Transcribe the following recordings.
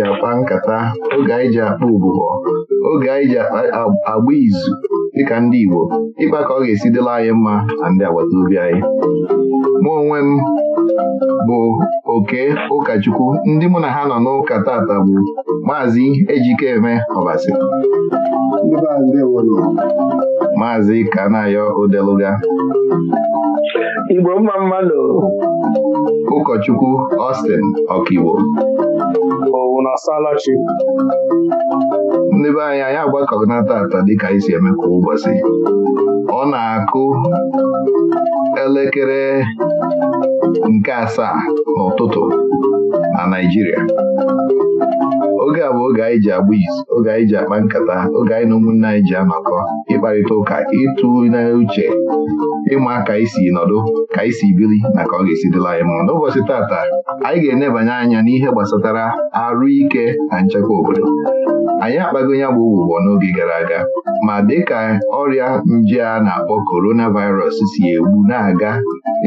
ji akpa nkata oge anyị ji akpa ụbụbọ oge anyị ji agba izu dịka ndị Igbo ịkpa ka ọ ga-esi dịla anyị mma na ndị agbata obi anyị mụ onwe m bụ oke ụkọchukwu ndị mụ na ha nọ n'ụka tata bụ maazị Ejikeme Ọbasi maazị Kanayo Odeluga Igbo mma mmadụ ụkọchukwu Austin Ọkigbo na salachi ndị be anyị anyị agbakọnata ata dịka isi eme eme kwa ụbọchị ọ na-akụ elekere nke asaa n'ụtụtụ na Naijiria, oge a bụ oge anyị ji agba izu oge anyị ji akpa nkata oge anyị na ụmụnne anyị ji anọkọ ịkparịta ụka ịtụ uche, ịma ka isi nọdụ ka isi bili na ka ọ ga-esi dịla anyị mma n'ụbọchị tata anyị ga-enebanye anya n'ihe gbasatara arụ ike na nchekwa obodo anyị akpago ya bụ ụgbụgbọ n'oge gara aga ma dịka ọrịa nje a na-akpọ coronavirus si egbu na-aga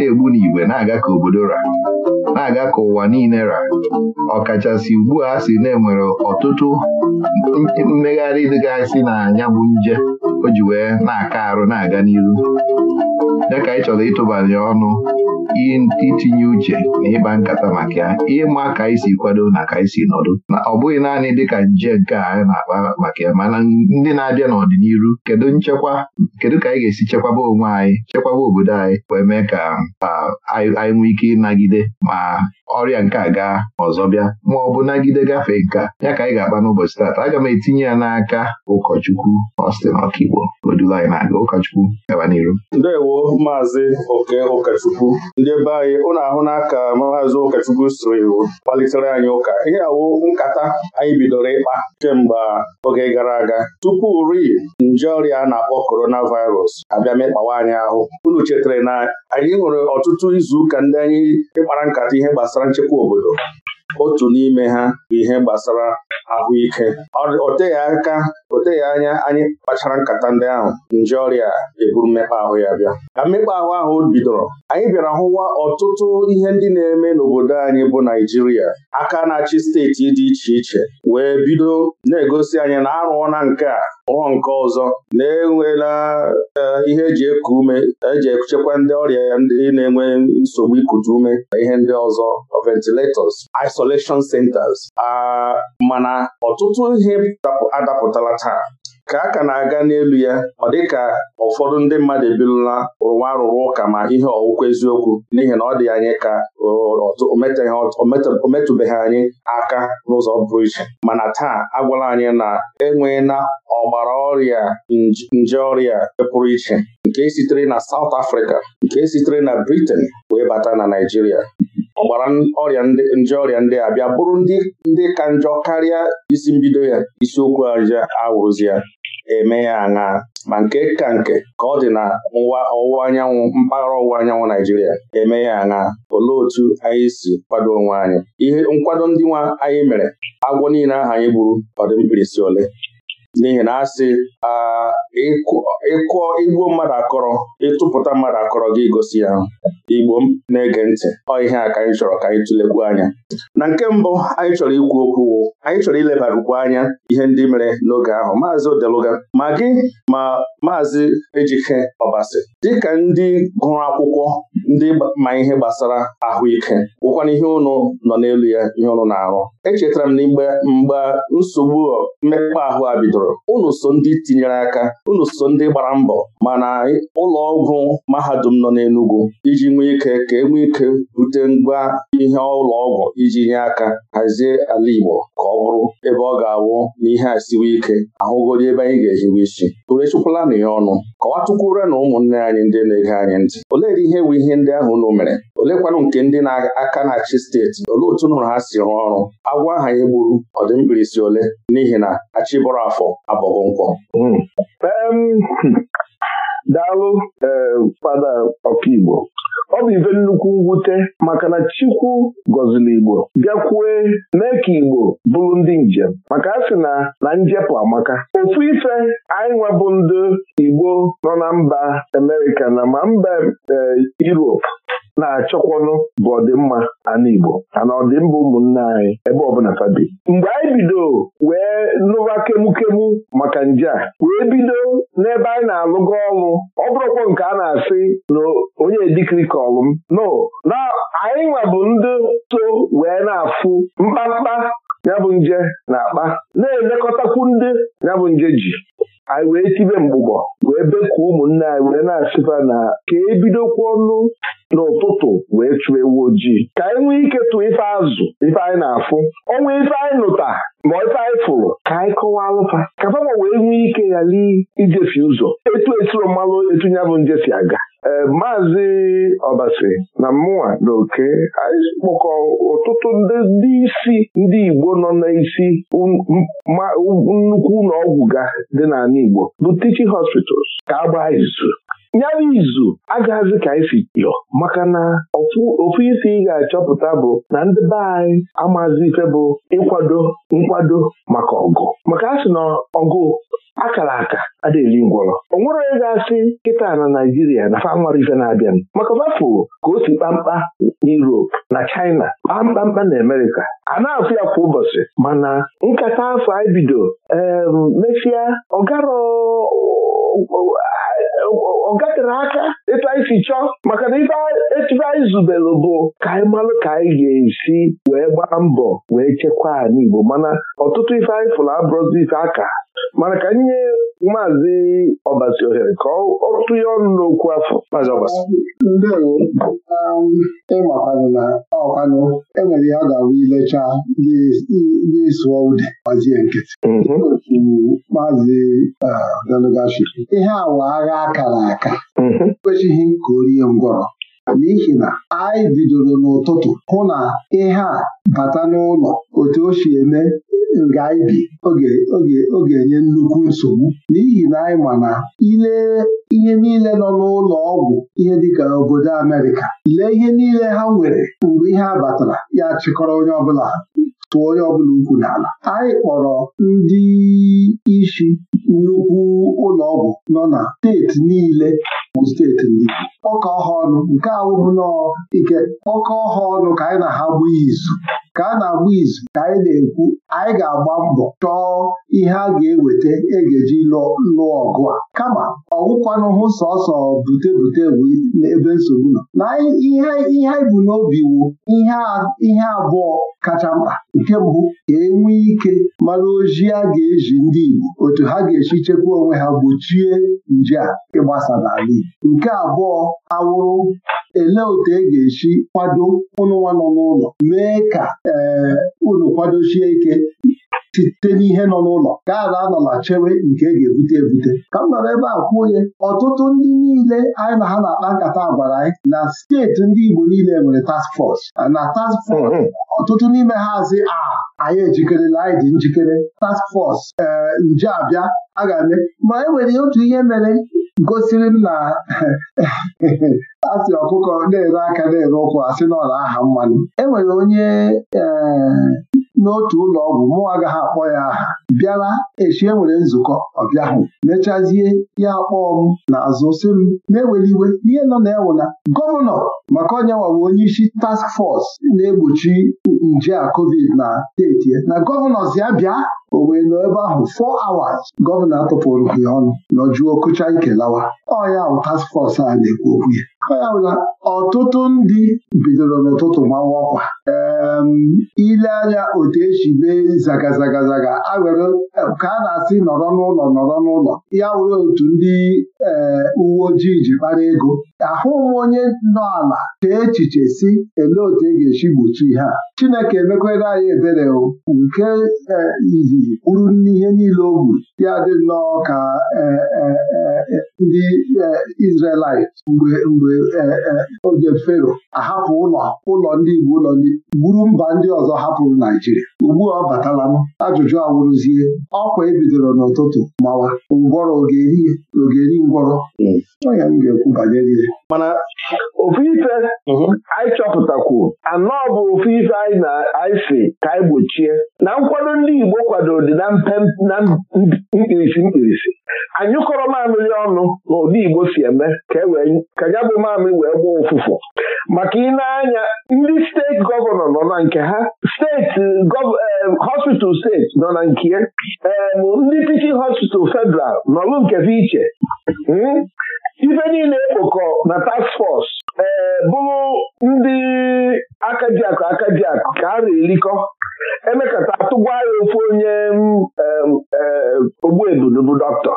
egbu n'igwe na-aga ka obodo ra na-aga ka ụwa niile ra ọkachasị ugbu a si na enwere ọtụtụ mmegharị dịgasị na ya bụ nje o ji wee na-aka arụ na-aga n'iru dịka anyị chọrọ ịtụbanye ọnụ itinye uche na ịkpa nkata maka ya ịma ka anyị si kwado na ka anyị si nọdụ na ọ bụghị naanị dịka nje nke a anyị na-akpa maka ya mana ndị na-abịa n'ọdịnihu kedu nchekwa kedu ka anyị ga-esi chekwaba onwe anyị chekwaba obodo anyị wee mee ka ah, anyị nwee ike ịnagide ma ọrịa nke a gaa ma ọzọ bịa ma ọ bụ nagide gafee nka ya ka anyị ga-akpa n'ụbọchị taata aga m etinye ya n'aka ụkọchukwu Austin Ọkaigbo odula anyị na-aga ụkọchukwu gaba n'iru ndewo maazị oke ụkọchukwu ndị ebe anyị ụlọ ahụ n'aka maazị ụkọchukwu siri kpalitere anyị ụka ihe awo nkata anyị bidoro ịkpa kemgbe oge gara aga tupu rii nje ọrịa a na-akpọ coronavirus abịa mekpawa anyị ahụ unu chetara na anyị nwere ọtụtụ izuụka ndị anyị ịkpara nkata ihe gbasara gbasara nchekwa obodo otu n'ime ha bụ ihe gbasara ahụike oteghị aka oteghị anya anyị kpachara nkata ndị ahụ nje ọrịa eburu mmekpa ahụ ya bịa ka mmekpa ahụ ahụ bidoro anyị bịara hụwa ọtụtụ ihe ndị na-eme n'obodo anyị bụ Naijiria aka na-achị steeti dị iche iche wee bido na-egosi anyị na arụọ na nke a ụọ nke ọzọ na-enwela eh, ihe eji eku ume eji ekuchekwa ndị ọrịa ndị na-enwe nsogbu ikute ume na ihe ndị ọzọ ventilators isolation centers ah, mana ọtụtụ ihe adapụtala taa ka a ka na-aga n'elu ya ọ dị ka ụfọdụ ndị mmadụ ebidola rụwa arụrụ ụka ma ihe ọwụkwa eziokwu n'ihi na ọ dị anyị ka o metụbeghị anyị aka n'ụzọ pụrụ iche mana taa agwala anyị na enweghị na ọgbara ọrịa nje ọrịa pụrụ iche nke sitere na South Africa nke sitere na Britain wee bata na Naijiria ọgbara ọrịa nje ọrịa ndị a bịa bụrụ ndị ndị ka njọ karịa isi mbido ya isiokwu aja awụzi ya eme ya aṅaa ma nke ka nke ka ọ dị na nwa ọwụwa anyanwụ mpaghara ọwụwa anyanwụ Naijiria eme ya aṅaa olee otu anyị si kwado onwe anyị ihe nkwado ndị nwa anyị mere agwọ niile aha anyị gburu ọdịmkpirisi mkpirisi ole n'ihi na asị ịkụọ igbuo mmadụ akọrọ ịtụpụta mmadụ akọrọ gị gosi ya igbo na-ege ntị ọ ihe a ka anyị chọrọ ka anyị tụlekwu anya na nke mbụ anyị chọrọ ikwu okwu anyị chọrọ ilebarukwu anya ihe ndị mere n'oge ahụ maazị Odeluga ma gị ma maazị Ejike Ọbasi dịka ndị gụrụ akwụkwọ ndị ma ihe gbasara ahụike gwụkwana ihe ụnụ nọ n'elu ya ihe ụnụ na-arụ echetara m na mgbe mgbe nsogbu mmekpa ahụ a bidoro unu so ndị tinyere aka unu so ndị gbara mbọ mana ụlọ ọgwụ mahadum nọ n'Enugu iji nwee ike ka e nwee ike bute ngwa ihe ụlọ ọgwụ iji nye aka hazie ala Igbo ka ọ bụrụ ebe ọ ga-awụ na ihe a siwe ike ahụgodi ebe anyị ga-ehiwe isi na ya ọnụ kọwatụkwure na ụmụnne anyị ndị na-ege anyị ntị olee ihe bụ ihe ndị ahụ unu mere olekwanụ nke ndị na-aka na-achị steeti olee otu nụrụ ha si rụọ ọrụ agwọ aha ya gburu ọdịmkpirisi ole n'ihi na achịbọrọ afọ abọghọ nkwọ hmm. daalụ eh, fada ọkaigbo ọ bụ ibe nnukwu mwute maka na Chukwu gọziri Igbo bịakwue mee ka Igbo bụrụ ndị njem maka a sị na na njepụ amaka ofu ife anyị nwebụ ndị Igbo nọ na mba amerika na ma mba e, Europe na-achọkwanụ bụ ọdịmma ala Igbo ana ọdịmma ụmụnne anyị ebe ọbụla fabi mgbe anyị bido wee nụwa kemukemu maka nje a wee bido n'ebe anyị na-alụgo ọlụ ọ bụrụkwa nke a na-asị na onye ọrụ m no na anyị nwa bụ ndị so wee na-afụ mkpamkpa ya bụ nje na-akpa na-elekọtakwu ndị ya bụ nje ji anyị wee tibe mgbụgbọ wee bekwa ụmụnne anyị wee na-asịba na ka e ọnụ n'ụtụtụ wee chụọ ewu ojii ka anyị nwee ike tụọ ife azụ ife anyị na-afụ ọnwa ife anyị nụta ma ife anyị fụrụ ka anyị kọwa alụfa ka fama wee nwee ike ghara ijefi ụzọ etu etiro mmalụ etu ya bụ njefi aga ee eh, maazị ọbasi na mụnwa na oke anyị kpọkọ ọtụtụ ndị isi ndị Igbo nọ n'isi um, um, nnukwu ụlọọgwụ ọgwụ ga dị n'ala Igbo bụ teaching hospitals ka agba izu ya izu agaghịzi ka esi yọ maka na ofu isi ị ga-achọpụta bụ na ndị be anyị amazi ife bụ ịkwado nkwado maka ọgụ maka a sị na ọgụ akara aka adịghị ngwọrọ Ọ nwere onye ga-asị kịta na Naijiria na fanwara ife na-abịanụ maka ọbafụ ka o si kpamkpa n'Europe na China kpamkpamkpa na amerika a na-afụ ya kwa ụbọchị mana nkata afọ ibido. bido emesịa ọgarọ ọ aka ịta isi chọọ maka na ife etufe anyị zubere bụ ka anyị malụ ka anyị ga-esi wee gbaa mbọ wee chekwaa n'Igbo mana ọtụtụ ife anyị fụrụ abụrụzi ife aka mana ka nye maazị ọbasi ohere ka ọ tụnye ọnụ n'okwu afọ maazị ọbasi ndewo um, ịmakwanụ na ọkwanụ enwere ihe a ga-awụ ilecha gị sụọ ude gbazie nkịtị mhm. otu maazị uh, delugashi ihe awa agha akara aka mhm. ekwechighị ka o rie ngwọrọ n'ihi na anyị bidoro n'ụtụtụ hụ na ihe a bata n'ụlọ otu o si eme nga anyị bi ọ ga-enye nnukwu nsogbu n'ihi na anyị ma na ihe niile nọ n'ụlọ ọgwụ ihe dịka obodo Amerịka lee ihe niile ha nwere mgbe ihe a batara ya chịkọrọ onye ọbụla tụọ onye ọbụla ukwu n'ala anyị kpọrọ ndị isi nnukwu ụlọ ọgwụ nọ na steeti niile bụ steeti ndị ọka ọha ọnụ nke awụrụ nnọọ ike ọka ọha ọnụ ka anyị na ha bụ izu ka a na-agba izu ka anyị na-ekwu anyị ga-agba mbọ chọọ ihe a ga-eweta ị e ga-eji lụọ ọgụ a kama ọgwụkwanụhụ sọsọ bute bute ebe nsogbu nọ na ihe anyị bụ n'obi wu ihe abụọ kacha mkpa nke mbụ ka enwe ike mara ojii a ga-eji ndị Igbo otu ha ga-esi chekwa onwe ha gbochie nje a ịgbasa n'ala Igbo nke abụọ awụrụ elee otu e ga-esi kwado ụnụnwa nọ n'ụlọ mee ka ee eh, unu kwadochie ike site n'ihe nọ n'ụlọ ka ala anọla chewe nke e ga-ebute ebute ka m nọrọ ebe a onye ọtụtụ ndị niile anyị na ha na-akpa nkata gwara anyị na steeti ndị Igbo niile nwere task force na task force mm-hmm. ọtụtụ n'ime ha a anyị ejikere anyị njikere task force ee eh, nje abịa a ga-eme ma e nwere otu ihe mere gosiri m na asị ọkụkọ na-ere aka na-ere ụkwụ asị n'ọla aha mmanụ e nwere onye eh, n'otu ụlọ ọgwụ mụ agaghị akpọ ya aha bịara echi enwere nzukọ ọbịahụ mechazie ya akpọọ m na sị m na-ewere iwe ihe nọ na ewụla gọvanọ maka onye nwawe onye isi task force na-egbochi nje a covid na steeti na gọvanọ zi ya bịa o wee nọ ebe ahụ fọ awas. gọvanọ atụpụrụ ya ọnụ nọjuo kụcha ike lawa ọ ya task fọs a na-ekwu okwu ya ya bụ na ọtụtụ ndị bidoro n'ụtụtụ mawa ọkwa ile anya otu esi mee zagazagazaga awere ka a na-asị nọrọ n'ụlọ nọrọ n'ụlọ ya were otu ndị eh, uwe ojii ji kpara ego ahụghị onye nọ ala ka echiche si elee otu e ga-esi gbochi ha?' Chineke emekwere anyị ebere nke eh, izizi kwuru n'ihe niile o gburu ya dị nnọọ ka eh, ndị Izrelite mgbe oge fero ahapụ ụlọ ụlọ ndị Igbo ụlọ gburu mba ndị ọzọ hapụrụ Naijiria ugbu a ọ batala m ajụjụ awụrụzie ọkwa ebidoro n'ụtụtụ mawa ngwọrọ ogeri eri ngwọrọ hmm. onye m ga-ekwu banyere ihe mana ofu ife mhm. anyị chọpụtakwu anọ bụ ofu ife anyị na-anyị si ka anyị gbochie na nkwado ndị Igbo kwadoro na mkpirisi mkpirisi anyụkọrọ mamịrị ọnụ na ụdị Igbo si eme ka e wee ka ya bụ mamị wee gbaa ụfụfụ maka ịna-anya ndị steeti gọvanọ nọ na nke ha steeti eh, hospital steeti nọ na nke ya eh, ndị teaching hospital federal nọlụ nke iche hmm? ife niile ekpokọ na task force ee eh, bụrụ ndị akajiakụ akajiakụ ka a na-erikọ emekata atụgwa ya ofu onye ogbuebudu bụ dọkịta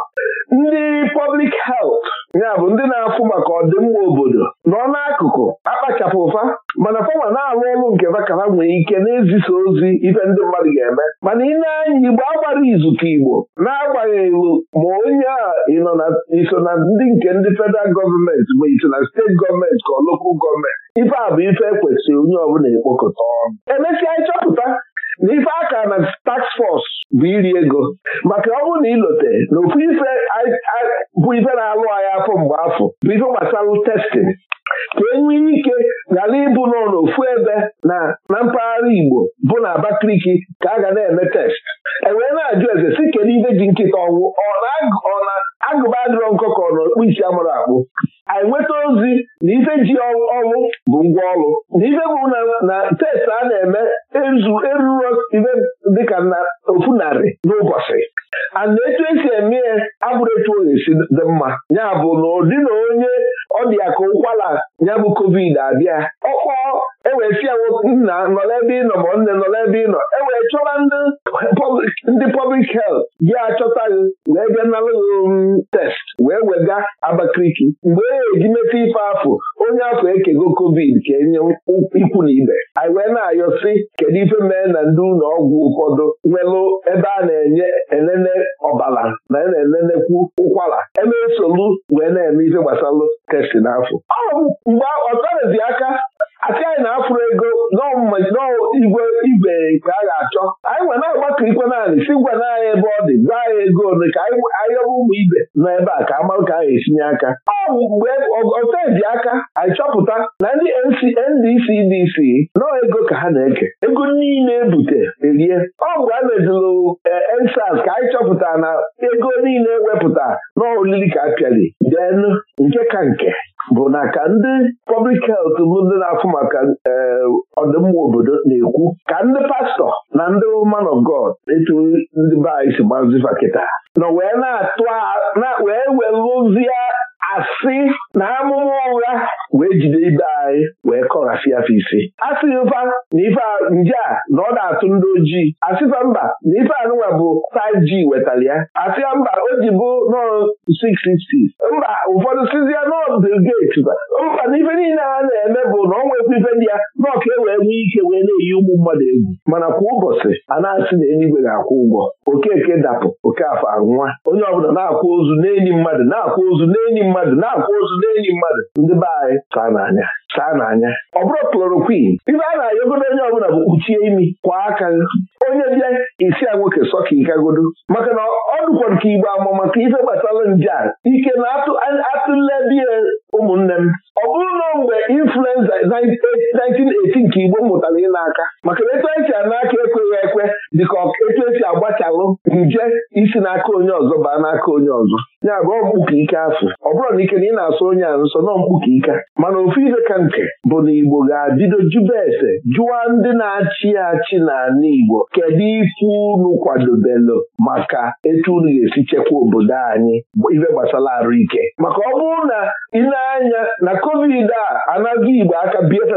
ndị public health ya bụ ndị na-afụ maka ọdịmma obodo nọ n'akụkụ akpachapụ ụfa mana fọma na-alụ ọrụ nke vakara nwere ike na-ezisa ozi ife ndị mmadụ ga-eme mana ị na-anya igbo agbara izu ka igbo na-agbanyeghị ma onye a iso na ndị nke ndị federal gọọmenti ma iso na steeti gọọmenti ka ọ lokal gọọmenti ife a bụ ife ekwesịrị onye ọbụla ekpokọta ọnụ emesịa ịchọpụta n'ife aka na tax force bụ iri ego maka ọ bụrụ na ilote na ofu ife bụ ife na-alụ anyị afọ mgbe afọ bụ ife gbasara testin ka enwee ike ghara ịbụ nọ n'ofu ebe na na mpaghara Igbo bụ na Abakaliki ka a ga na-eme test enwee na-ajụ eze si kedu ife ji nkịta ọnwụ ọ na-agụba adịrọ nkụkọ. isi mara akpụ anyị nweta ozi na ife ji ọrụ bụ ngwa ọrụ na ife bụ na test a na-eme ezu eruru ife dịka na ofu narị n'ụbọchị ana etu esi eme ya abụrụ etu ọ dị mma ya bụ na ụdị na onye ọ dị ya ka ụkwara ya bụ covid abịa ọkpọọ wee si ya nna nọrọ ebe ị nọ ma nne nọrọ ebe ị nọ e wee chọba ndị pọblik helt gị achọta gị wee bịa nalụghị um, test wee wega Abakaliki mgbe e eji meta ife afọ onye afọ ekego covid ka enye ikwu na ibe anyị wee na-ayọ si kedu ife mee na ndị ụlọ ọgwụ ụfọdụ nwelụ ebe a na-enye enene ọbara na e na-enenekwu ụkwara eme nsogbu wee na-eme ife gbasalụ test n'afọ ọ mgbe ọtarazi aka anyị na-afụrụ ego n'igwe igwe nke a ga-achọ anyị nwere na-agbakọ ikwe naanị si ngwa na anyị ebe ọ dị gwa anyị ego ole ka anyị ụmụ ibe nọ ebe a ka amarụ ka a ga esinye aka ọ mgbe oteji aka anyị chọpụta na ndị NDC-DC nọ ego ka ha na-eke ego niile ebute erie ọ mgbe a mezụrụ EndSARS eh, ka anyị chọpụtara na ego niile wepụta n'olili ka a pịali den nke ka nke bụ na ka ndị pọblik helt bụ ndị na-afụ maka eh, ọdịmma obodo na-ekwu ka ndị pastọ na ndị man of God etu ndị be anyị si gbazifa na nọ wee welụzie asị na amụma ụgha wee jide ibe anyị wee kọghasịa afọ ise asịghị mfa na ife nje a na ọ na-atụ ndị ojii asịfa mba na ife anụnwa bụ 5G wetara ya asịa mba o ji bụ nọọ 666 mba ụfọdụ sizia nọọ Bill mba na ife niile a na-eme bụ na ọ nwekwa ife ndị ya na ọka e wee nwee ike wee na-eyi ụmụ mmadụ egwu mana kwa ụbọchị a na-asị na eluigwe ga-akwụ ụgwọ okeke dapụ oke afọ anwa onye ọbụla na-akwụ ozu n'enyi mmadụ na-akwụ ozu n'enyi mmadụ na-akwụ ozu n'enyi mmadụ ndị be anyị ka na-anya saa n'anya ọ bụrụ klorokwin Ibe a na-ayọgodo onye ọbụla bụ kpuchie imi kwa aka onye bịa isi a nwoke sọka ịkagodo maka na ọ dụkwa nke igbo ama maka ife gbasara nje a ike na atụledị ụmụnne m ọ bụrụ na mgbe influenza 1918 nke igbo mụtara ịna aka maka etu anyị si a n'aka ekweghị ekwe dịka etu esi agbachalụ nje isi n'aka onye ọzọ baa n'aka onye ọzọ ya bụ ọmkpuka ike afọ ọ bụrụ na ike na ị na-asụ onye a nsọ na ọmkpuka ike mana ofu ife ka nke bụ na Igbo ga-abido jụba ese jụwa ndị na-achị achị n'ala Igbo kedu ife unu kwadobelu maka etu unu ga-esi chekwa obodo anyị ife gbasara arụ ike maka ọ bụrụ na ịnanya na-anya na covid a anaghị Igbo aka bieta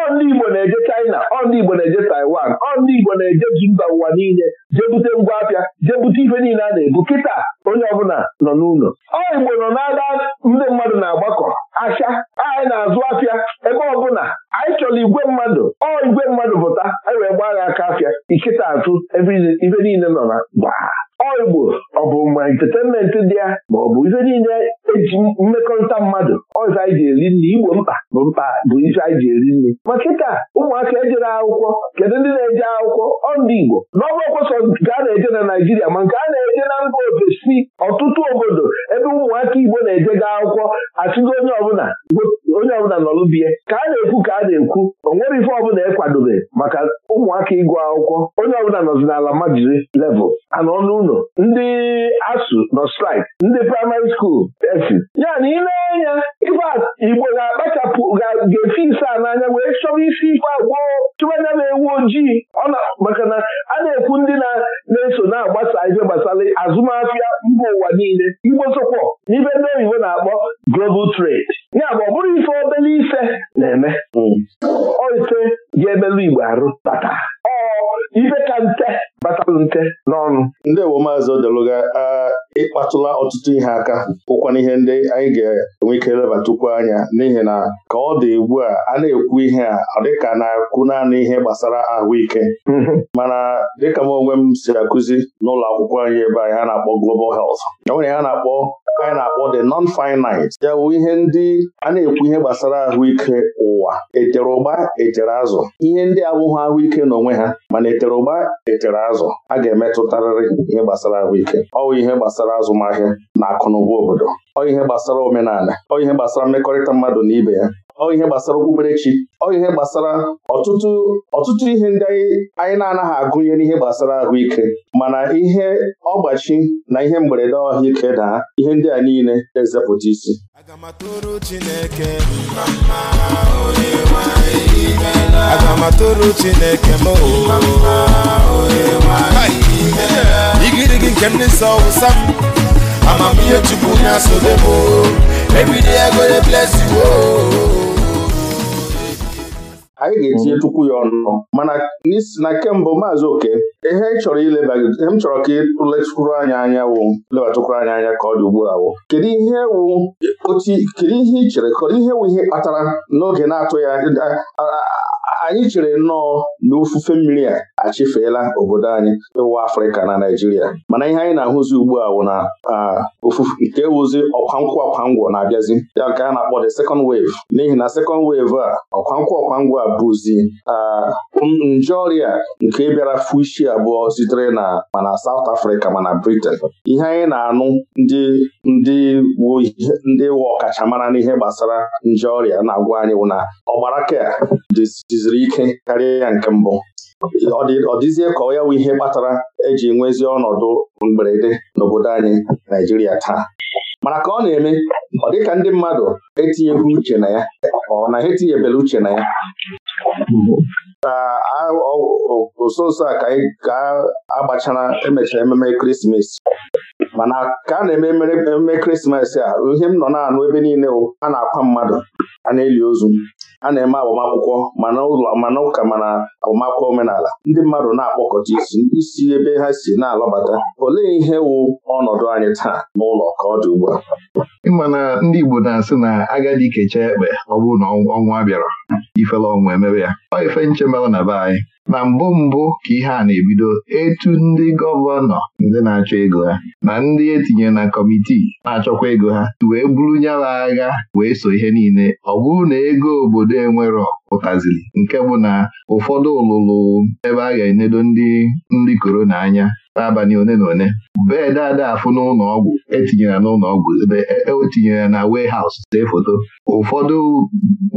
ọ ndị Igbo na-eje China ọ ndị Igbo na-eje Taiwan ọ ndị Igbo na-eje mba ụwa niile ihe jee bute ngwa apịa jee bute ife niile a na-ebu kịta onye ọbụla nọ n'ụlọ ọ igbo nọ na-aga ndị mmadụ na-agbakọ ahịa anyị na-azụ afia ebe ọbụla anyị chọrọ igwe mmadụ ọ igwe mmadụ pụta anyị wee gbaa gha aka afia ikịta azụ ebe ife niile nọ na gbaa ọigbo ọ bụ ma entetenment dị ya ma ọ bụ ihe niile eji mmekọrịta mmadụ ọzọ anyị ji eri nri igbo mkpa bụ mkpa bụ ihe anyị ji eri nri ma kịta ụmụaka ejere akwụkwọ kedu ndị na-eje akwụkwọ ọ ndị igbo n'ọgbakọ sọ nke a na-eje na naijiria ma nke a na-eje na mba ofesi ọtụtụ obodo ebe ụmụaka igbo na-ejega akwụkwọ achụgo onye ọbụla onye ọbụla nọlụ bie ka a na-ekwu ka a na-ekwu o nwere ife ọbụla ekwadobe maka ụmụaka ịgụ akwụkwọ onye ọbụla nọzi n'ala majiri level a nọ n'ụlọ ndị asụ nọ straik ndị praịmarị skuul esi ya na ile anya ife igbo ga-akpachapụ ga-efi ise a n'anya wee chọrọ isi ife agwọ chụbanya na-ewu ojii maka na a na-ekwu ndị na-eso na-agbasa ihe gbasara azụmahịa mba ụwa niile igbo sokwa n'ibe ndị oyibo na-akpọ global trade Igbo arụ bata ka nte batalụ nte n'ọnụ ewo maazị odeluga ịkpatụla ọtụtụ ihe aka ụkwana ihe ndị anyị ga-enwe ike elebatukwu anya n'ihi na ka ọ dị ugbu a a na-ekwu ihe a ọ dịka na-akụ naanị ihe gbasara ahụike mhm. mana dịka m onwe m si akụzi n'ụlọ akwụkwọ anyị ebe anyị a na-akpọ global health e a na-akpọ anyị na-akpọ the non-finite ya bụ ihe ndị a na-ekwu ihe gbasara ahụike ụwa etere ụgba etere azụ ihe ndị abụghị ahụike n'onwe ha mana etere ụgba etere azụ a ga-emetụtarịrị ihe gbasara ahụike ọwụ ihe gbasara azụmahịa na akụnụba obodo ọ ihe gbasara omenala ọ ihe gbasara mmekọrịta mmadụ na ibe ya ọ ihe gbasara okpukperechi ọ ihe gbasara ọtụtụ ọtụtụ ihe ndị anyị na-anaghị agụnye n'ihe gbasara ahụike mana ihe ọgbachi na ihe mberede ahụike daa ihe ndị a niile ezepụta isi aga m atụrụ Chineke mma Onyenwe anyị imeela aga m atụrụ Chineke m mma Onyenwe anyị imeela igirigi nke ndị nsọ wụsa m amamihe Chukwu na-asọde m ebidi ego bless you anyị ga-etinye mhm. chukwu ya ọnụ mana n'isi na kemgbe maazị oke ihe ịchọrọ chọrọ ileba ihe ka ịtụletụkwuru anya anya wụ lebatụkwuru anyị anya ka ọ dị ugbu a wụ kedu ihe wụ kedu ihe chere ihe wụ ihe kpatara n'oge na-atụ ya anyị chere nnọọ na ofufe mmiri a achịfeela obodo anyị ịwụ Afrịka na Naịjirịa mana ihe anyị na-ahụzi ugbu a bụ na ofufe nke wụzi ọkwankwụ ọkwangwọ na-abịazi ya nke a na-akpọ the second wave n'ihi na second wave a ọkwankwụ ọkwangwọ a bụzi nje ọrịa nke bịara fụ isi abụọ sitere na mana South Africa mana Britain ihe anyị na-anụ ndị ndị ndị wụ ọkachamara n'ihe gbasara nje ọrịa na-agwa anyị wụ na ọgbara ka siri ike karịa ya nke mbụ ọ dịzie ka ọ ya bụ ihe kpatara eji nwezie ọnọdụ mgberede n'obodo anyị Naijiria taa mana ka ọ na-eme ọ dị ka ndị mmadụ etinyeghị uche na ya ọ na ha etinyebela uche na ya nso nso a ka a gbachara emechara ememe ekeresimesi mana ka a na-eme ememe ekeresimesi a ihe m nọ na-anụ ebe niile a na-akwa mmadụ a na-eli ozu a na-eme agbamakwụkwọ mana ụlọ mana ụka mana agbamakwụkwọ omenala ndị mmadụ na-akpọkọta isi isi ebe ha si na-alọbata olee ihe wụ ọnọdụ anyị taa n'ụlọ ka ọ dị ugbu a ịmana ndị Igbo na-asị na agadi kechaa ekpe ọ bụrụ na ọnwụ a bịara ifela ọnwụ emebe ya ọ ife nche na be anyị na mbụ mbụ ka ihe a na-ebido etu ndị gọvanọ ndị na-achọ ego ha na ndị etinyere na kọmitii na-achọkwa ego ha wee bụrụ nyala agha wee so ihe niile ọ bụrụ na ego obodo enwero pụtaziri nke bụ na ụfọdụ ụlụlụ ebe a ga-enedo ndị ndị korona anya n'abalị one na one bred afụ n'ụlọ ọgwụ etinyere n'ụlọ ọgwụ etinyere e, e na haus see e foto ụfọdụ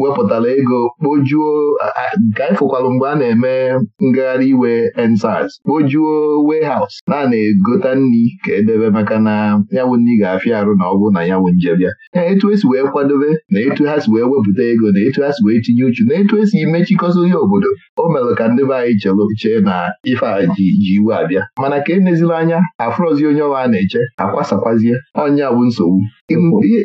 wepụtara ego kpojuo nke anyị fụkwalụ mgbe a na-eme ngagharị iwe ensaz kpojuo warehouse na a na-egota nri ka edebe maka na yawụ nri ga-afịa arụ na ọgwụ na ya. njebịa etu esi wee kwadobe na etu ha si wee wepụta ego na etu ha si wee tinye uchu na etu esi imechikọta onye obodo o mere ka ndị be anyị chee na ife a ji iwe abịa mana ka e anya afrozi ozi onye ọwa na-eche akwasakwazie onye bụ nsogbu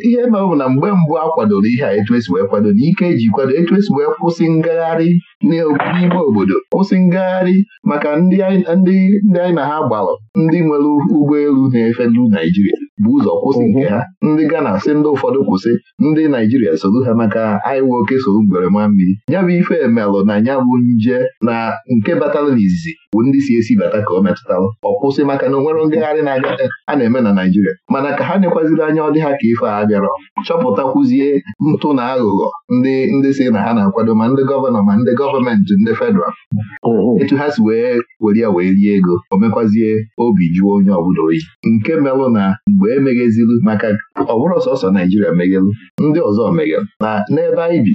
ihe mere bụ na mgbe mbụ a kwadoro ihe a etu esi wee kwado na ike eji kwado etu esi wee kwụsị ngagharị n'ime obodo kwụsị ngagharị maka ndị anyị na ha gbalụ ndị nwere ụgbọelu na-efelu efe Naijiria bụ ụzọ kwụsị nke ha ndị Ghana si ndị ụfọdụ kwụsị ndị Naijiria soru ha maka anyị nwe oke solu mgberema mmiri ya bụ ife emelụ na ya bụ nje na nke na n'izizi bụ ndị si esi bata ka ọ metụtara ọ kwụsị maka na onwere ngagharị na-aga a na-eme na Naijiria mana ka ha nekwaziri anya ọ dị ha ka ife a bịara chọpụtakwuzie ntụ na aghụghọ ndị ndị si na ha na-akwado ma ndị gọvanọ ma ndị gọọmenti ndị federal mm-hmm. etu ha si wee were ya wee rie ego o mekwazie obi jụọ onye ọbụla oyi nke melụ na mgbe emeghezili maka ọ bụrụ sọsọ Naijiria meghelụ ndị ọzọ meghelụ na n'ebe anyị bi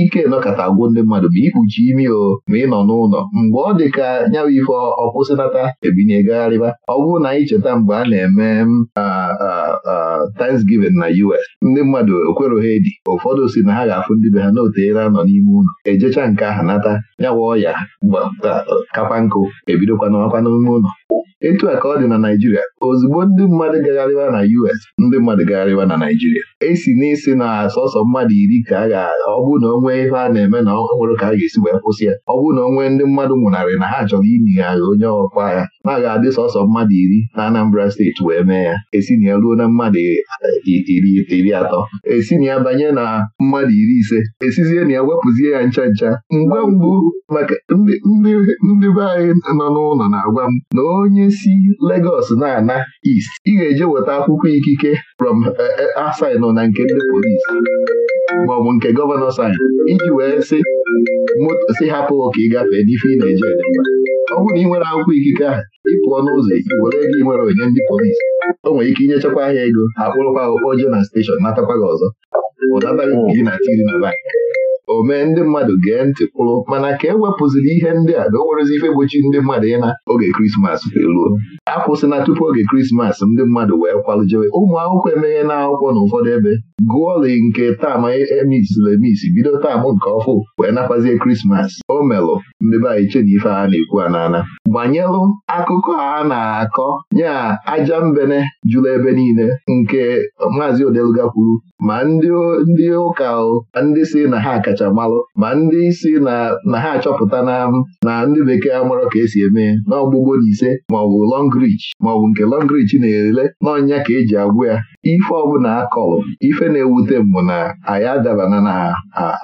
ike nọkọta agwụ ndị mmadụ ma ikpuchi imi o ma ị nọ n'ụlọ mgbe ọ dị ka nyawa ife ọkwụsịnata ebinye gagharịba ọ bụrụ na anyị cheta mgbe a na-eme Thanksgiving na US ndị mmadụ ekweroghị edi ụfọdụ si na ha ga-afụ ndị be ha na anọ n'ime ụlọ ejecha nke aha anata nyawa ọya kakwa nkụ ebidokwana ọkwa n'ime ụlọ etu a ka ọ dị na Naijiria ozugbo ndị mmadụ gagharịwa na US ndị mmadụ gagharịwa na Naijiria esi n'isi na sọsọ mmadụ iri ka a ga-agha ọ bụrụ na o ihe a na-eme na ọhụrụ ka a ga-esi wee kwụsị ya ọ bụrụ na o ndị mmadụ nwụnarị na ha chọrọ inyi agha onye ọkwa agha na aga ga-adị sọsọ mmadụ iri na Anambra steeti wee mee ya esi na ya ruo na mmadụ iri atọ esi na ya banye na mmadụ iri ise esizie na ya wepụzie ya ncha ncha mgbe ngwa mgbu maka ndị be anyị nọ n'ụlọ na-agwa m na onye si Legọs na-ana East ị ga-eje weta akwụkwọ ikike from eh, eh, asin na nke ndị polis maọbụ nke gọvanọ sin iji wee sị si hapụ ka ị gafee n'ife ị na-eje ọ bụrụ na ị nwere akwụkwọ ikike ahụ ịpụọ n'ụzọ were ego ị nwere onye ndị polis o nwere ike inyechakwa ahịa ego akpụrụkwa kpọjee na steshọn natakwa gị ọzọ ụdata gị na tiri na bankị o mee ndị mmadụ gee ntị pụrụ, mana ka e wepụziri ihe ndị a na o nwerezi ife gbochi ndị mmadụ ịna oge krismas eruo akwụsịna tupu oge krismas ndị mmadụ wee kwalụjewe ụmụ akwụkwọ emeghe na akwụkwọ na ụfọdụ ebe gụọli nke taam emisiri e emisi bido taamụ nke ọfụ wee nakwazie krismas o melụ ndị be anyị chena ife a na-ekwu anana gbanyelụ akụkọ a na-akọ nya aja mbene jụrụ ebe niile nke maazị odeluga kwuru ma ndị ụka ndị si na ha ọkachammalụ ma ndị isi na ha achọpụta na ndị bekee amarọ ka esi eme n'ọgbụgbo na ise maọbụ Longreach maọbụ nke lọngrich na-ele n'ọnya ka eji agwụ ya ife ọbụla akọlụ ife na-ewute mbụ na anyị adabana na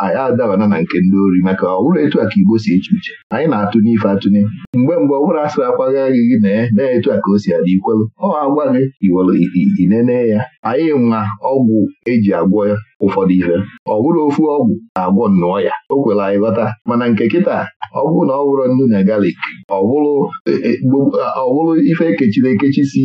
anyị adabana na nke ndị ori maka ọ bụrụ etu a ka Igbo si eche uche anyị na-atụ n'ife atụnye mgbe mgbe ọ bụrụ asịrị akwaghị agị gị na etu a ka o si adị ikwelu ọ agwa gị inene ya anyị nwa ọgwụ eji agwọ ya ụfọdụ ife ọ bụrụ ofu ọgwụ na-agwọ nnụọ ya o kwela anyị ghọta mana nke kịta ọ bụrụ na ọ bụrụ nnu na galik ọ bụrụ ife ekechiri ekechi si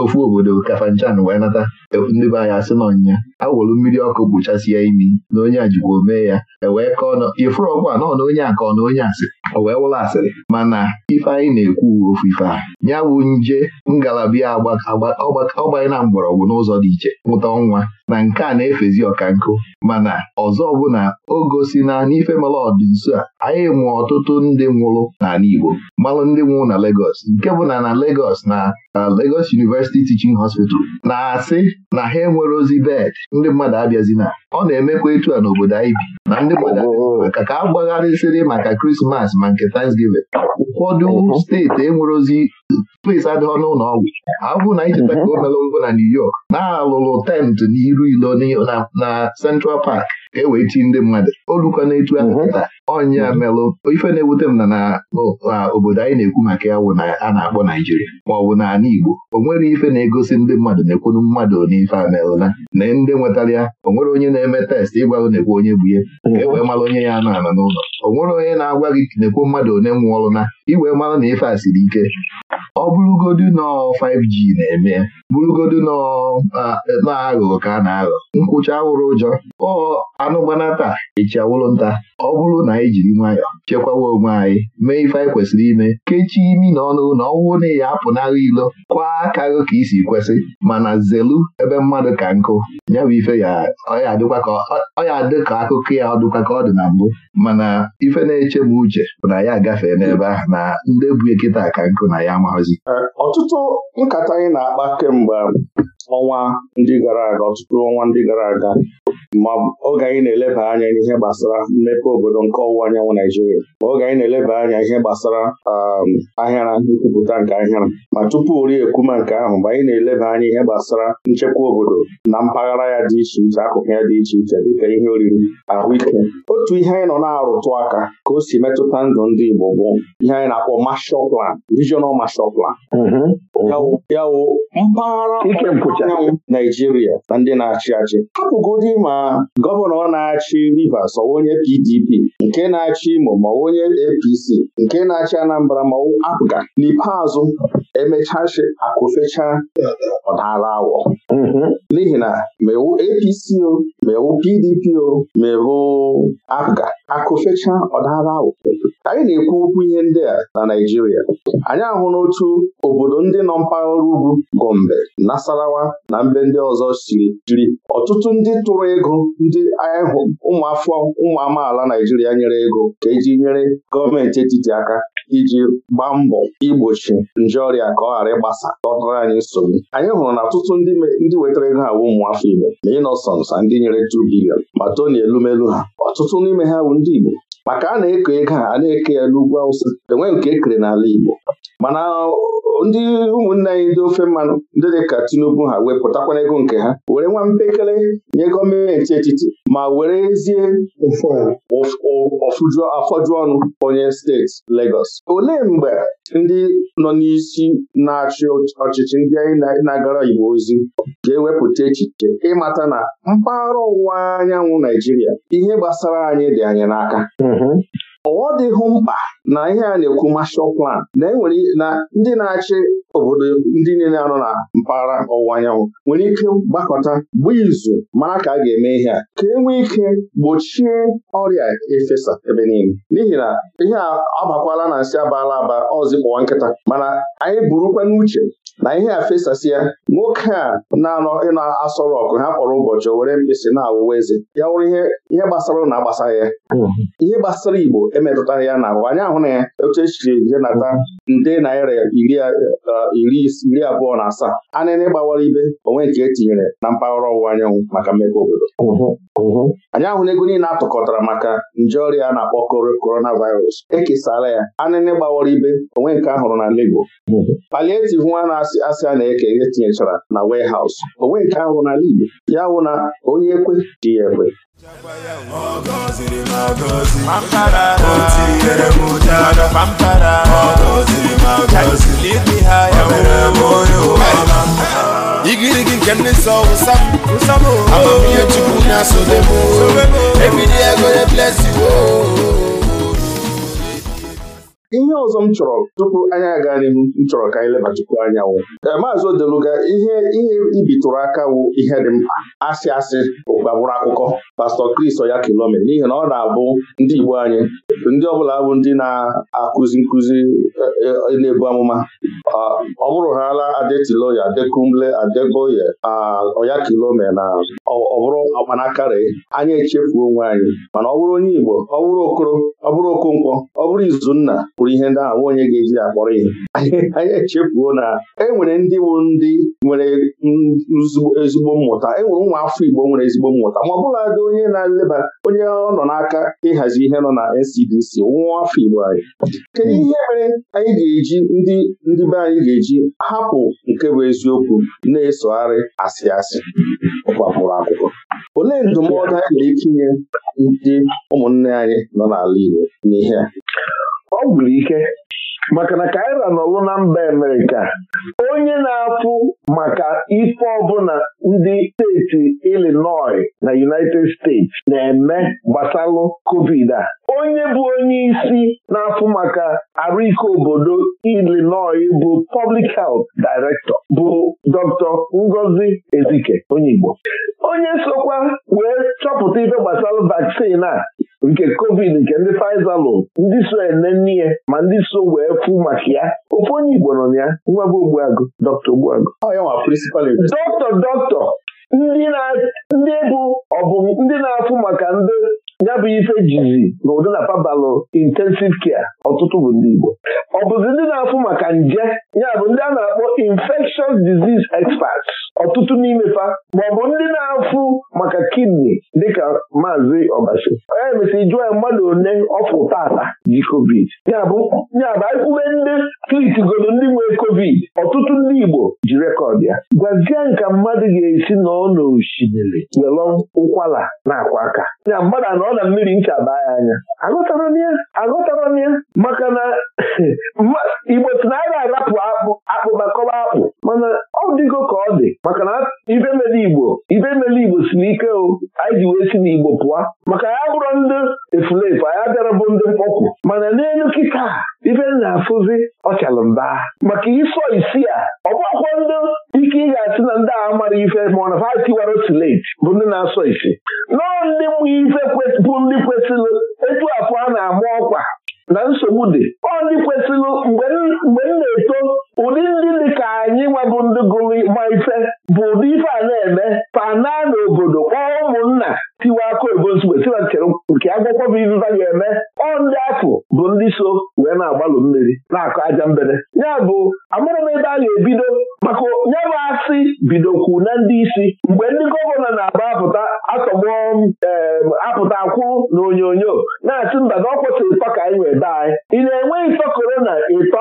ofu obodo kafanchan wee nata ndị be anyị asị na a welu mmiri ọkụ gbuchasie imi na onye a jikwa omee ya ewee kọọ nọ ifuru ọgwụ a nọ na onye a ka ọ na onye asị o wee wụrụ asịrị mana ife anyị na-ekwu uwe ofu ife a ya bụ nje ngalaba ya ọgbanye na mgbọrọgwụ n'ụzọ dị iche nwụta ọnwa na nke a na-efezi ọka nkụ. mana ọzọ ọbụla o gosi na n'ife mara ọdị nso a anyị mụọ ọtụtụ ndị nwụrụ n'ala Igbo malụ ndị nwụrụ na legos nke bụ na na na uh, legos University Teaching Hospital na-asị na ha enwere ozi bed ndị mmadụ abịazina ọ na-emekwa etu a n'obodo anyị bi na ndị mmadụ maka ka a gbagharịsịrị maka krismas ma nke Thanksgiving ụfọdụ steeti enwere ozi place adịghị ọnụ ụlọ ọgwụ abụ na icheta ka o mere mbụ na New York na-alụlụ tent n'iru ilo na Central Park ka e ndị mmadụ na etu ahụ taa ọnya mhm. melụ ife na-ewute m na na obodo anyị na-ekwu maka ya wụ na a na-akpọ Naijiria na ana Igbo o nwere ife na-egosi ndị mmadụ na-ekwunu mmadụ n'ife a melụla na ndị nwetara ya o nwere onye na-eme test ịgwago na-ekwu onye bụ ihe. ka e wee mara onye ya anọ anọ n'ụlọ o nwere onye na-agwa gị na-ekwu mmadụ one nwụọrụ na iwee mara na ife a siri ike ọ bụrụgodu nọ 5G na-eme bụrụgodu nọ na ka a na-aghọ nkwụcha wụrụ ụjọ ọ gbanata nta ọ bụrụ na anyị jiri nwayọọ chekwawa onwe anyị mee ife anyị kwesịrị ime kechie imi na ọnụ na ọwụ na ya apụnara ilo kwaa aka gị ka isi kwesị mana zelu ebe mmadụ ka nkụ ya bụ ife ya ọya dị ka akụkọ ya ọdụkwa dịkwa ka ọ dị na mbụ mana ife na-eche m uche bụ na ya agafee n'ebe ahụ na ndị bụ ekịta ka nkụ na ya amaghịzi ọtụtụ nkata anyị na-akpa kemgbe ọnwa ndị gara aga ọtụtụ ọnwa ndị gara aga ma oge anyị na-eleba anya n'ihe gbasara mmepe obodo nke ọwụwa anyanwụ Naijiria ma oge anyị na-eleba anya ihe gbasara um, ahịara nkwupụta nke ahịara ma tupu ori ekwuma nke ahụ mgbe anyị na-eleba anya ihe gbasara nchekwa obodo na mpaghara ya dị iche iche akụkụ ya dị iche iche dịka ihe oriri ahụike otu ihe anyị nọ na-arụtụ aka ka o si metụta ndụ ndị Igbo bụ ihe anyị na-akpọ Marshall Plan, Regional Plan. Mm-hmm. mpaghara Ọdịda Naijiria na ndị na-achị achị hapụgodị ma gọvanọ na-achị Rivers ọwa onye PDP nke na-achị Imo ma onye APC nke na-achị Anambra ma apụga n'ikpeazụ emechachi akụfecha ọdara awọ mm-hmm. n'ihi na mewu APC o mewu PDP o mewu APGA akụfecha ọdara awọ anyị na-ekwu okwu ihe ndị a na Naijiria. anyị ahụ n'otu obodo ndị nọ mpaghara ugwu Gombe Nasarawa na mbe ndị ọzọ siri jiri ọtụtụ ndị tụrụ ego ndị ụmụafọ ụmụ amaala Naijiria nyere ego ka eji nyere gọọmenti etiti aka iji gbaa mbọ igbochi nje ọrịa ka ọ ghara ịgbasa dọtara anyị nsogbu anyị hụrụ na ọtụtụ ndị wetara ego ha bụ ụmụafọ Igbo na Innocence na ndị nyere 2 bilion ma na Elumelu ha ọtụtụ n'ime ha bụ ndị Igbo maka a na-eko ego a a na-eke ya n'ugwu Awụsa Enweghị nke ekere n'ala Igbo mana ndị ụmụnne anyị ndị ofe mmanụ ndị dị ka Tinubu ha wepụtakwana ego nke ha were nwa mpekele nye gọọmenti etiti ma were werezie afọju ọnụ onye steeti Legọs olee mgbe ndị nọ n'isi na-achị ọchịchị ndị anyị na-agara Igbo ozi ga-ewepụta echiche ịmata na mpaghara ọwụwa anyanwụ Naijiria ihe gbasara anyị dị anyị n'aka mhm. Ọ dịghị mkpa na ihe a na-ekwu mashal plan na enwere na ndị na-achị obodo ndị niile anọ na mpaghara ọwụwa anyanwụ nwere ike gbakọta bụ izu mara ka a ga-eme ihe a ka e nwee ike gbochie ọrịa efesa ebe niile n'ihi na ihe a abakwala na nsị abala aba ọzipụwa nkịta mana anyị burukwa n'uche na ihe a ya. nwoke a na-anọ ịna asọrọ ọkụ ha kpọrọ ụbọchị o were mkpịsị na-awụwa eze ya wụrụ ihe gbasara na agbasara ya ihe gbasara Igbo emetụtara ya na anyị ahụ na ya otu echiri nata nde naira iri eh, abụọ na asaa anịnị gbawara ibe onwe nke etinyere na mpaghara ọwụwa anyanwụ maka mmepe obodo anyị ahụ na niile atụkọtara maka nje ọrịa na-akpọ coronavirus ekesara ya Anị gbawara ibe onwe nke ahụrụ na Lagos palietiv nwa na asị asị a na-eke ihe tinyechara na warehouse o nweghị nke ahụ n'ala Igbo ya wụ na onye ekwe ji ya ekwe igirigi nke ndị nsọ wụsa amamihe Chukwu na-asodem ebili ego eblesiwo ihe ọzọ m chọrọ tupu anyị aga n'ihu m chọrọ ka anyị leba anya wụ eh, maazị Odeluga ihe ihe ibitụrụ aka wụ ihe dị mkpa asị asị gbagburu akụkọ pastọ Chris Oya Kilome n'ihi na ọ na-abụ ndị Igbo anyị ndị ọbụla bụ ndị na-akụzi nkụzi eh, eh, na-ebu amụma ah, ọ bụrụ hala adetiloya adekumle adeboye ah, Oya Kilome na ọbụrụ bụrụ anya anyị echefuo onwe anyị mana ọ bụrụ onye Igbo ọ bụrụ okoro ọ bụrụ okonkwo ọ bụrụ izunna kpụrụ ihe ndị ahụ nwa onye ga-eji ya akpọrọ ihe anyị echefuo na e nwere ndị ndị nwere ezigbo mmụta e nwere ụmụ afọ Igbo nwere ezigbo mmụta ma ọ bụla dị onye na-eleba onye ọ nọ n'aka ịhazi ihe nọ na NCDC nwa afọ Igbo anyị kedu hmm. ihe mere anyị ga-eji ndị ndị be anyị ga-eji hapụ nke bụ eziokwu na-esogharị asị asị ọgbapụrụ akwụkwọ olee ndụmọdụ anyị na etinye ndị ụmụnne anyị nọ n'ala Igbo n'ihe a ọ gwụrụ ike maka na kaira n'ọrụ na mba Amerịka onye na-afụ maka ife ọbụla ndị steeti Illinois na United States na-eme gbasalụ covid a onye bụ onye isi na-afụ maka arụike obodo Illinois bụ Public Health Director bụ Dr. Ngozi Ezike onye Igbo onye sokwa wee chọpụta ife gbasalụ vaccine a nke covid nke ndị Pfizer lụrụ ndị so ene nne ya ma ndị so wee fụ maka ya ofe onye Igbo nọ na ya nwa bụ Ogbuagụ dọkta Ogbuagụ dọkta dọkta ndị na ọ bụ ndị na-afụ maka ndị ya bụ ife jizi na ụdị na pabalụ intensiv kia ọtụtụ bụ ndị Igbo ọ bụzi ndị na-afụ maka nje ya bụ ndị a na-akpọ infectious disease experts ọtụtụ n'imefa maọbụ ndị na-afụ maka kidney dịka maazị ọbasi onye mesịrị jụọ ya mmadụ one ọfụ tata ji covid yabụ bụ anyịkwube ndị godo ndị nwere covid ọtụtụ ndị Igbo ji rekọd ya gwazie nka mmadụ ga-esi nọ n'osimiri were ụkwara na akwa aka ya mmadụ anọ ọ na mmiri ncha baa ya anya agụtara m ya aghọtara m ya maka na igbo si na a ga-arapụ akpụ akpụba kọba akpụ mana ọ dịgo ka ọ dị maka na ibe mere igbo ibe mere igbo si n'ike o anyị ji wee si n'igbo pụọ maka ya bụrụ ndị efulefu anya bịara bụ ndị mkpọkwu mana n'elu kịta ibe m na-afụzi ọ chalụ mba maka ịsọ isi ife ma ọ na ha tiwara otu late bụ ndị na-asọ isi nọọ ndị mụ ife bụ ndị kwesịrị etu afọ a na-ama ọkwa na nsogbu dị ọ ndị kwesịrị mgbe m na-eto ụdị ndị dị ka anyị nwabụ ndị gụrụ ma ife bụ ụdị ife a na-eme pana n'obodo kpọọ ụmụnna tiwa aka obodo nke agwụkwọ bụ iviva ga-eme ọ ndị afọ bụ ndị so wee na-agbalụ mmiri na-akụ aja mbere. ya bụ amụrụ m ebe a ga-ebido maka ya bidokwu na ndị isi mgbe ndị gọvanọ na agba apụta atọgbọ apụta akwụ na onyonyo na-asị mba na ọ kwụsịrị ịtọ ka anyị wee daa anyị ị na-enwe ịtọ korona ịtọ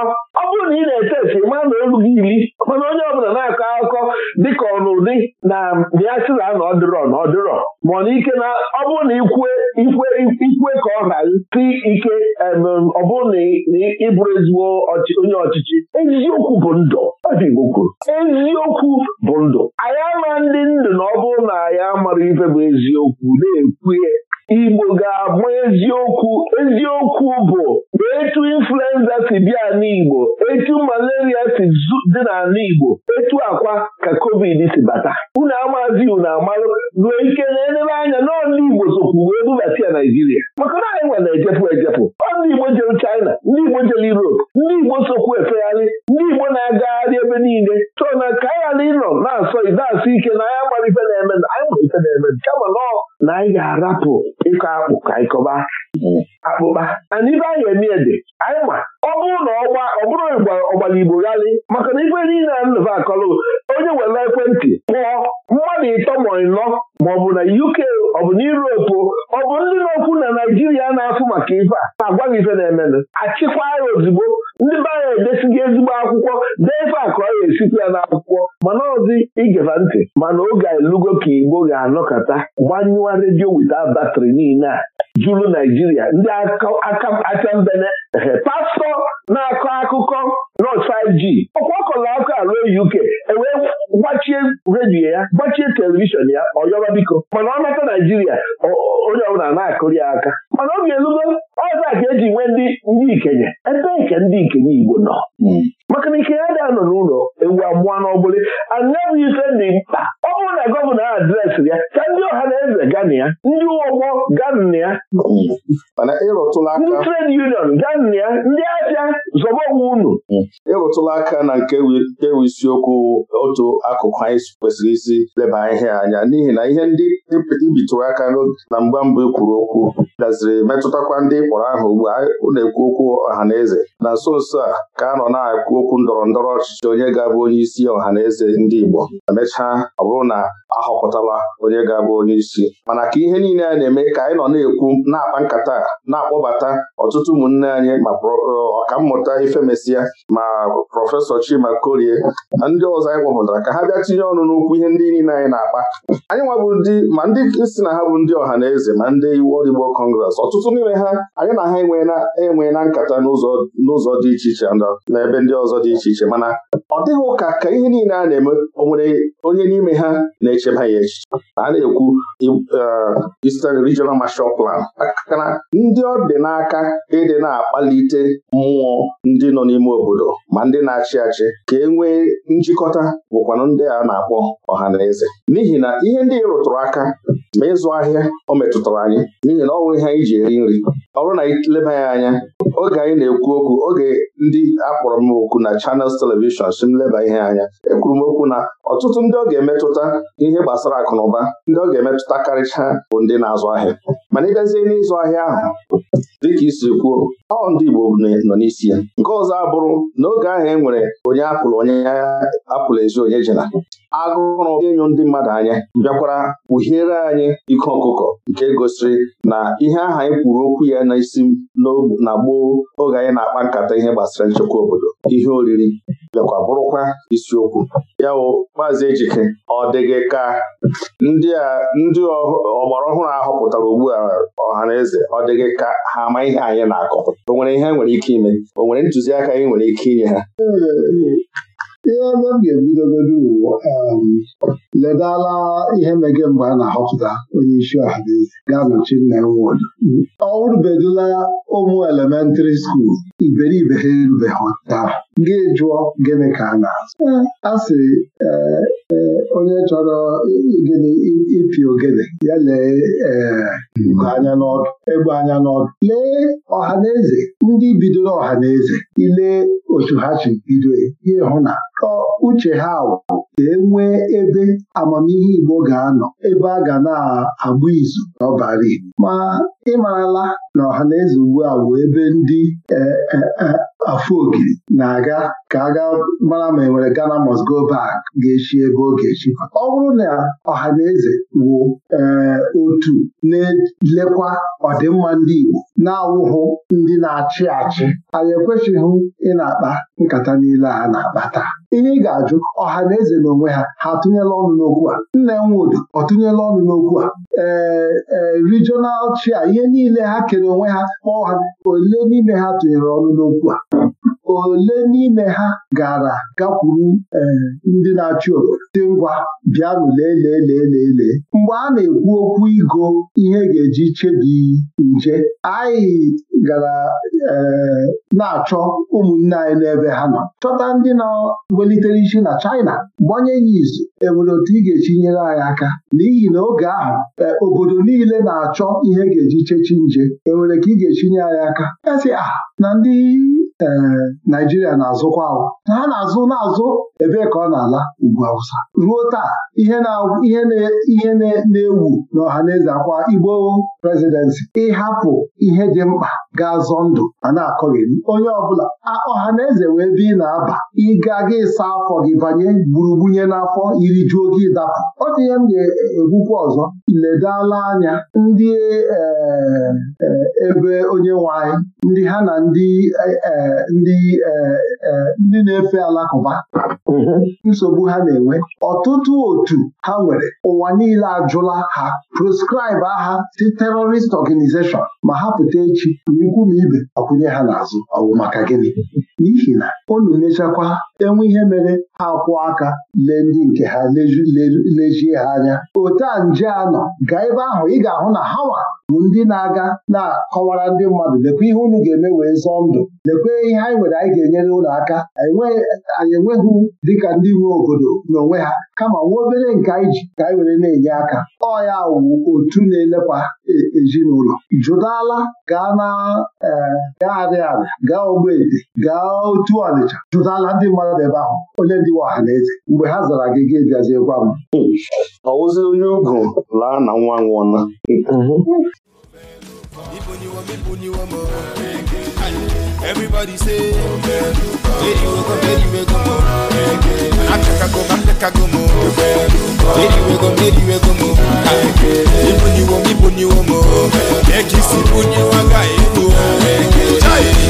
onye na-ete esi mana elu gị iri mana onye ọbụla na-akọ akụkọ dịka ọnụdị na bịa sị na na ọ dịrọ na ọ ma ọ na ike na ọ bụrụ na ikwe ikwe ikwe ka ọ ghara si ike ọ bụrụ na ịbụrụ ezigbo onye ọchịchị eziokwu bụ ndụ eziokwu bụ ndụ anyị ama ndị ndụ na ọ bụrụ na anyị amara ife bụ eziokwu na-ekwu Igbo ga-agba eziokwu eziokwu bụ etu influenza si bịa n'Igbo etu malaria si dị n'ala Igbo etu akwa ka covid si bata unu amazi unu amalụ ruo ike na-enere anya n'ọla Igbo sokwu wee bubata ya Naijiria maka na anyị nwere ejepụ ejepụ ndị Igbo jere China ndị Igbo jere Europe ndị Igbo sokwu efegharị ndị Igbo na-agagharị ebe niile so na ka anyị ghara ịnọ na-asọ ide ike na anya mara ife na-eme na anyị nwere na-eme kama nọ na anyị ga-arapụ ịkọ akpụ ka ịkọba mm. akpụkpa ana ibe anyị eme ede Nleva akọlụ onye nwere ekwentị kpụọ mmadụ ịtọ ma ịnọ ma ọ bụ na UK ọ bụ na Europe ọ bụ ndị n'okwu na Naijiria na-afụ maka ife a na-agwaghị ife na-emenụ achịkwa ya ozugbo ndị be anyị edesighị ezigbo akwụkwọ dee ife a ka ọ ga-esikwa ya n'akwụkwọ mana ọzi igeva ntị mana oge elugo ka Igbo ga-anọkọta gbanyụọ redio wita batrị niile a juru Naijiria ndị aka mbene pastọ na-akọ akụkọ nọt 5G ọkwa ruo UK ewee gbachie redio ya gbachie telivishọn ya ọ yọrọ biko mana ọ nata Naijiria onye ọbụla na-akụri ya aka mana ọ ga-elugo a ka eji nwee ndị ndị ikenye ebe nke ndị ikenye Igbo nọ hmm. maka na ike ya anọ n'ụlọ ewu amụọ n'ọbụlị anyabụ ife dị mkpa ọ bụrụ na gọvanọ adresị ya ka ndị ọha na eze gana ya ndị ụgbọ gana ya ndị trade union gana ya ndị ahịa zọba unu ịrụtụla aka na nke ewu isiokwu otu akụkụ anyị kwesịrị isi leba ihe anya n'ihi na ihe ndị ibitụrụ aka na mgba mbụ e kwuru okwu gaziri metụtakwa ndị kpọrọ aha ugbu a na-ekwu okwu ọha na eze na nso nso a ka a nọ na-ekwu okwu ndọrọ ndọrọ ọchịchị onye ga-abụ onye isi ọha na eze ndị Igbo emechaa ọ bụrụ na a họpụtala onye ga-abụ onye isi mana ka ihe niile a na-eme ka anyị nọ na-ekwu na-akpa nkata na-akpọbata ọtụtụ ụmụnne anyị ma ọkammụta ifemesịa ma prọfesọ Chima Korie na ndị ọzọ anyị kpọpụtara ka ha bịa tinye ọnụ n'okwu ihe ndị niile anyị na-akpa anyị nwabụ ndị ma ndị si na ha bụ ndị ọha na eze ma ndị iwu ọdịgbokọ kọngres ọtụtụ n'ime ha anyị na ha enwe na nkata n'ụzọ dị iche iche na ebe ndị ọzọ dị iche iche mana ọ dịghị ụka ka ihe niile a na-eme o nwere onye n'ime ha na-echeba ya echiche a na-ekwu e, Eastern Regional Marshall Plan akana ndị ọ dị n'aka ịdị na-akpalite mmụọ ndị nọ n'ime obodo ma ndị na-achị achị ka e nwee njikọta bụkwanụ ndị a na-akpọ ọha na eze n'ihi na ihe ndị rụtụrụ aka ma ịzụ ahịa ọ metụtara anyị n'ihi na ọ ihe anyị ji eri nri ọ bụrụ na anyị leba ya anya oge anyị na-ekwu okwu oge ndị akpọrọ m okwu na Channels telivishọn si m leba ihe anya ekwuru m okwu na ọtụtụ ndị ọ ga-emetụta ihe gbasara akụ na ụba ndị ọ ga-emetụta karịcha bụ ndị na-azụ ahịa mana ịgazie n'ịzụ ahịa ahụ dịka isi kwuo ọ ndị Igbo nọ n'isi ya nke ọzọ abụrụ n'oge ahụ e nwere onye apụlụ onye apụlụ ezi onye jela agụrụ ịnyụ ndị mmadụ anya bịakwara kpughiere anyị ike ọkụkọ nke gosiri na ihe aha anyị kwuru okwu ya n'isi na gboo oge anyị na-akpa nkata ihe gbasara nchekwa obodo ihe oriri bịakwa bụrụkwa isiokwu ya maazị Ejike ọ dịghị ka ndị ọgbara ọhụrụ ahụ eze ọ dịghị ka ha ama ihe anyị na-akọ o nwere ihe nwere ike ime o nwere ntụziaka anyị nwere ike inye ha ihe ebe m ga-ebidogodo uwo um, ledala ihe mege mgbe a na-ahọpụta onye isi ọhaneze ga-anọchi nna nwodo ọ rubedula ụmụ elementrị skuul iberibe ha erubeghị taa gị jụọ gịnị ka a na-azụ a sị e, onye chọrọ gịnị ịpị ogene ya lee e, hmm. anya n'ọdụ egbe anya n'ọdụ lee ọhaneze ndị bidoro ọhaneze ile otu ha si bido ihe hụ na uche ha wụ ka e nwee ebe amamihe Igbo ga-anọ ebe a ga na-abụ izu n'ọbara Igbo ma ịmarala na ọhaneze ugbu a bụ ebe ndị e, afọ ogiri na-aga Aga ka aga gaa mara ma enwere Ghana must go back ga-echi ebe ọ ga-echi ọ bụrụ na ọha na eze wụ eh, otu na-elekwa ọdịmma ndị Igbo na-awụhụ ndị na-achị achị anyị ekwesịghị ị na-akpa nkata niile a na-akpa taa ihe ị ga-ajụ ọha na eze na onwe ha ha atụnyela ọnụ n'okwu a nne nwudu ọ tụnyela ọnụ n'okwu a ee e, regional chair ihe niile ha kere onwe ha kpọọ ha ole n'ime ha tụnyere ọnụ n'okwu a ole n'ime ha gara gakwuru e, ndị na-achị obodo dị ngwa bịanụ lee lee mgbe a na-ekwu okwu igo ihe ga-eji chebi nje anyị gara e, na-achọ ụmụnne anyị n'ebe ha nọ chọta ndị welitere isi na China gbanye ya izu enwere otu ị ga-echi anyị aka n'ihi na oge ahụ e, obodo niile na-achọ ihe e ga-eji chechi nje enwere ka ị ga-echi anyị aka esi a ah, na ndị ee eh, Naijiria na-azụkwa ahụ ha na-azụ na-azụ ebee ka ọ na-ala ugwu Awụsa ruo taa ihe na-ewu n'ọha na eze akwa Igbo prezidensi ịhapụ ihe dị mkpa ga-azọ ndụ ma na-akọghị onye ọbụla ọha na eze wee bi na-aba ịga gị ịsa afọ gị banye gburugbunye n'afọ iri juo gị dapụ ọ dị ihe m ga egwukwu ọzọ ledala anya ndị eh, eh, ebe onye nwanyị anyị ndị ha na ndị eh, ndị na-efe alakụba mm-hmm. nsogbu ha na-enwe ọtụtụ otu ha nwere ụwa niile ajụla ha proscribe ha si terrorist organization ma ha pụta echi n'ikwu ma ibe ọkụnye ha n'azụ ọ maka gịnị n'ihi na unu mechakwa enwe ihe mere ha kwụọ aka lee ndị nke ha lejie ha anya ote a nje a gaa ebe ahụ ị ga-ahụ na hawa bụ ndị na-aga na-akọwara ndị mmadụ lekwa ihe unu ga-eme wee zọọ ndụ lekwe ihe anyị nwere anyị ga-enyere ụlọ aka anyị enweghị dịka ndị nwe obodo n'onwe ha kama nwa obere nke anyị ji ka anyị were na-enye aka ọ ya wu otu na-elekwa e, ezinụlọ jụdala gaa na e, gaa arịa gaa ogbeete gaa otu ọnịcha jụdala ndị mmadụ ebe ahụ onye ndị nwe ọha na eze mgbe ha zara gị gị bịaziekwa m ọwụzi onye ugwu laa na nwa nwụọna Everybody say,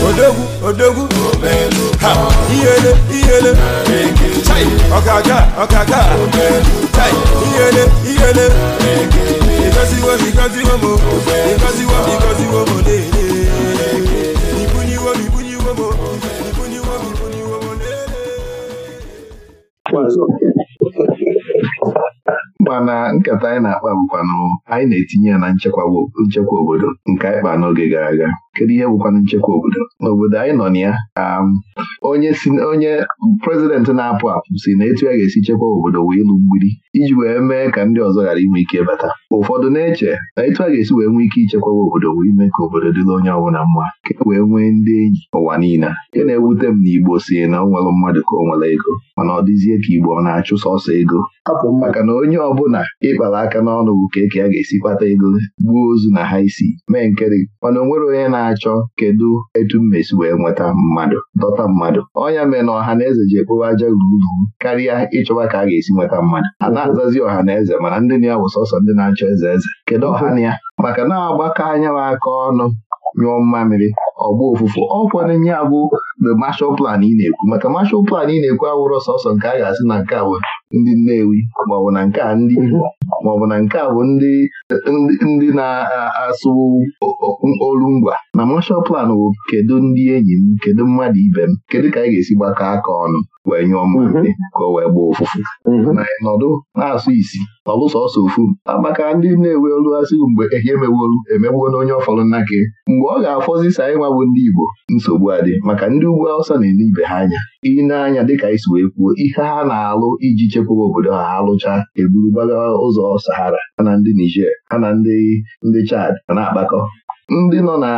odogwu odogwu ha ihele ihele chai ọkaga ọkaga chai ihele ihele ịgọziwo m ịgọziwo m ịgọziwo m ịgọziwo m lele ibuniwo m ibuniwo m ibuniwo m ibuniwo m lele mana nkata anyị na-akpa mkpanụ anyị na-etinye ya na nchekwa obodo nke anyị kpa n'oge gara aga kedu ihe bụkwanụ nchekwa obodo n'obodo anyị nọ na ya um, onye onye prezidenti na-apụ apụ si na etu ya ga-esi chekwa obodo wee ịlụ mgbidi iji wee mee ka ndị ọzọ ghara inwe ike bata ụfọdụ na-eche na etu a ga-esi wee nwee ike ichekwawa obodo wee ime ka obodo dịla onye ọbụla mma ka e wee nwee ndị enyi ụwa niile nke na-ewute m na Igbo si na ọ nwere mmadụ ka ọ nwere ego mana ọ dịzie ka Igbo ọ na-achụ sọsọ ego maka na onye ọbụla ịkpara aka n'ọnụ bụ ka eke ya ga-esi kpata ego gbuo ozu na ha isi mee nkeri mana o onye na na-achọ kedu etu mmesi wee nweta mmadụ dọta mmadụ ọnya mee na ọha na eze ji ekpowe aja gburugburu karịa ịchọba ka a ga-esi nweta mmadụ a na-azazi ọha na eze mana ndị na ya bụ sọsọ ndị na-achọ eze eze kedu ọha na ya maka na-agbakọ anya aka ọnụ nyụọ mmamịrị ọgba ofụfụ ọkwọ na-enye bụ the marshal plan ị na-ekwu maka marshal plan ị na-ekwu awụrọ sọsọ nke a ga-asị na nke a bụ ndị Nnewi maọbụ na nke a ndị maọbụ na nke a bụ ndị na-asụ olu ngwa na marshal plan bụ kedu ndị enyi m kedu mmadụ ibe m kedu ka anyị ga-esi gbakọ aka ọnụ wee nyụọ mmadụ mhm. ka o wee gbaa mhm. na nọdụ na-asụ isi ọlụ sọsọ ofu Amaka ndị na-ewe olu asịghị mgbe ehi emewolu emegbuo na onye ọfọlụ nna gị mgbe ọ ga-afọzi sa anyị ndị Igbo nsogbu adị maka ndị ugwu Awụsa na-ele ibe ha anya i na-anya dịka ka wee kwuo ihe ha na-alụ iji chekwaba obodo ha ha eburu gbaga ụzọ Sahara ha na ndị Niger ha na ndị ndị Chad na-akpakọ ndị nọ na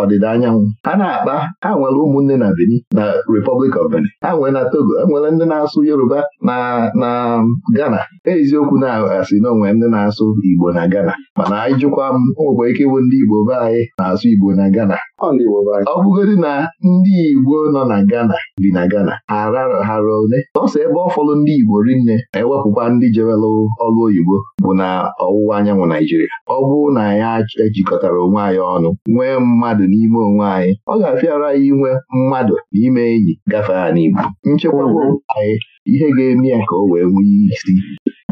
ọdịda anyanwụ ha na-akpa ha nwere ụmụnne na beni na Republic of Benin ha nwere na Togo enwere ndị na-asụ Yoruba na gana Ghana e eziokwu na asị na ndị na-asụ Igbo na Ghana mana anyị jụkwa m o ike ịbụ ndị Igbo be anyị na-asụ Igbo na Ghana ọ bụgodị na ndị Igbo nọ na Ghana bi na Ghana hara ole nọọsọ ebe ọ ndị Igbo rinne ewepụkwa ndị jewelụ ọlụ oyibo bụ na ọwụwa anyanwụ Naijiria ọ bụrụ na ya ejikọtara onwe anyị ọnụ nwee mmadụ n'ime onwe anyị ọ ga-afịara inwe mmadụ n'ime enyi gafee ha n'Igbo nchekwa anyị ihe ga-eme ya ka o wee nwee isi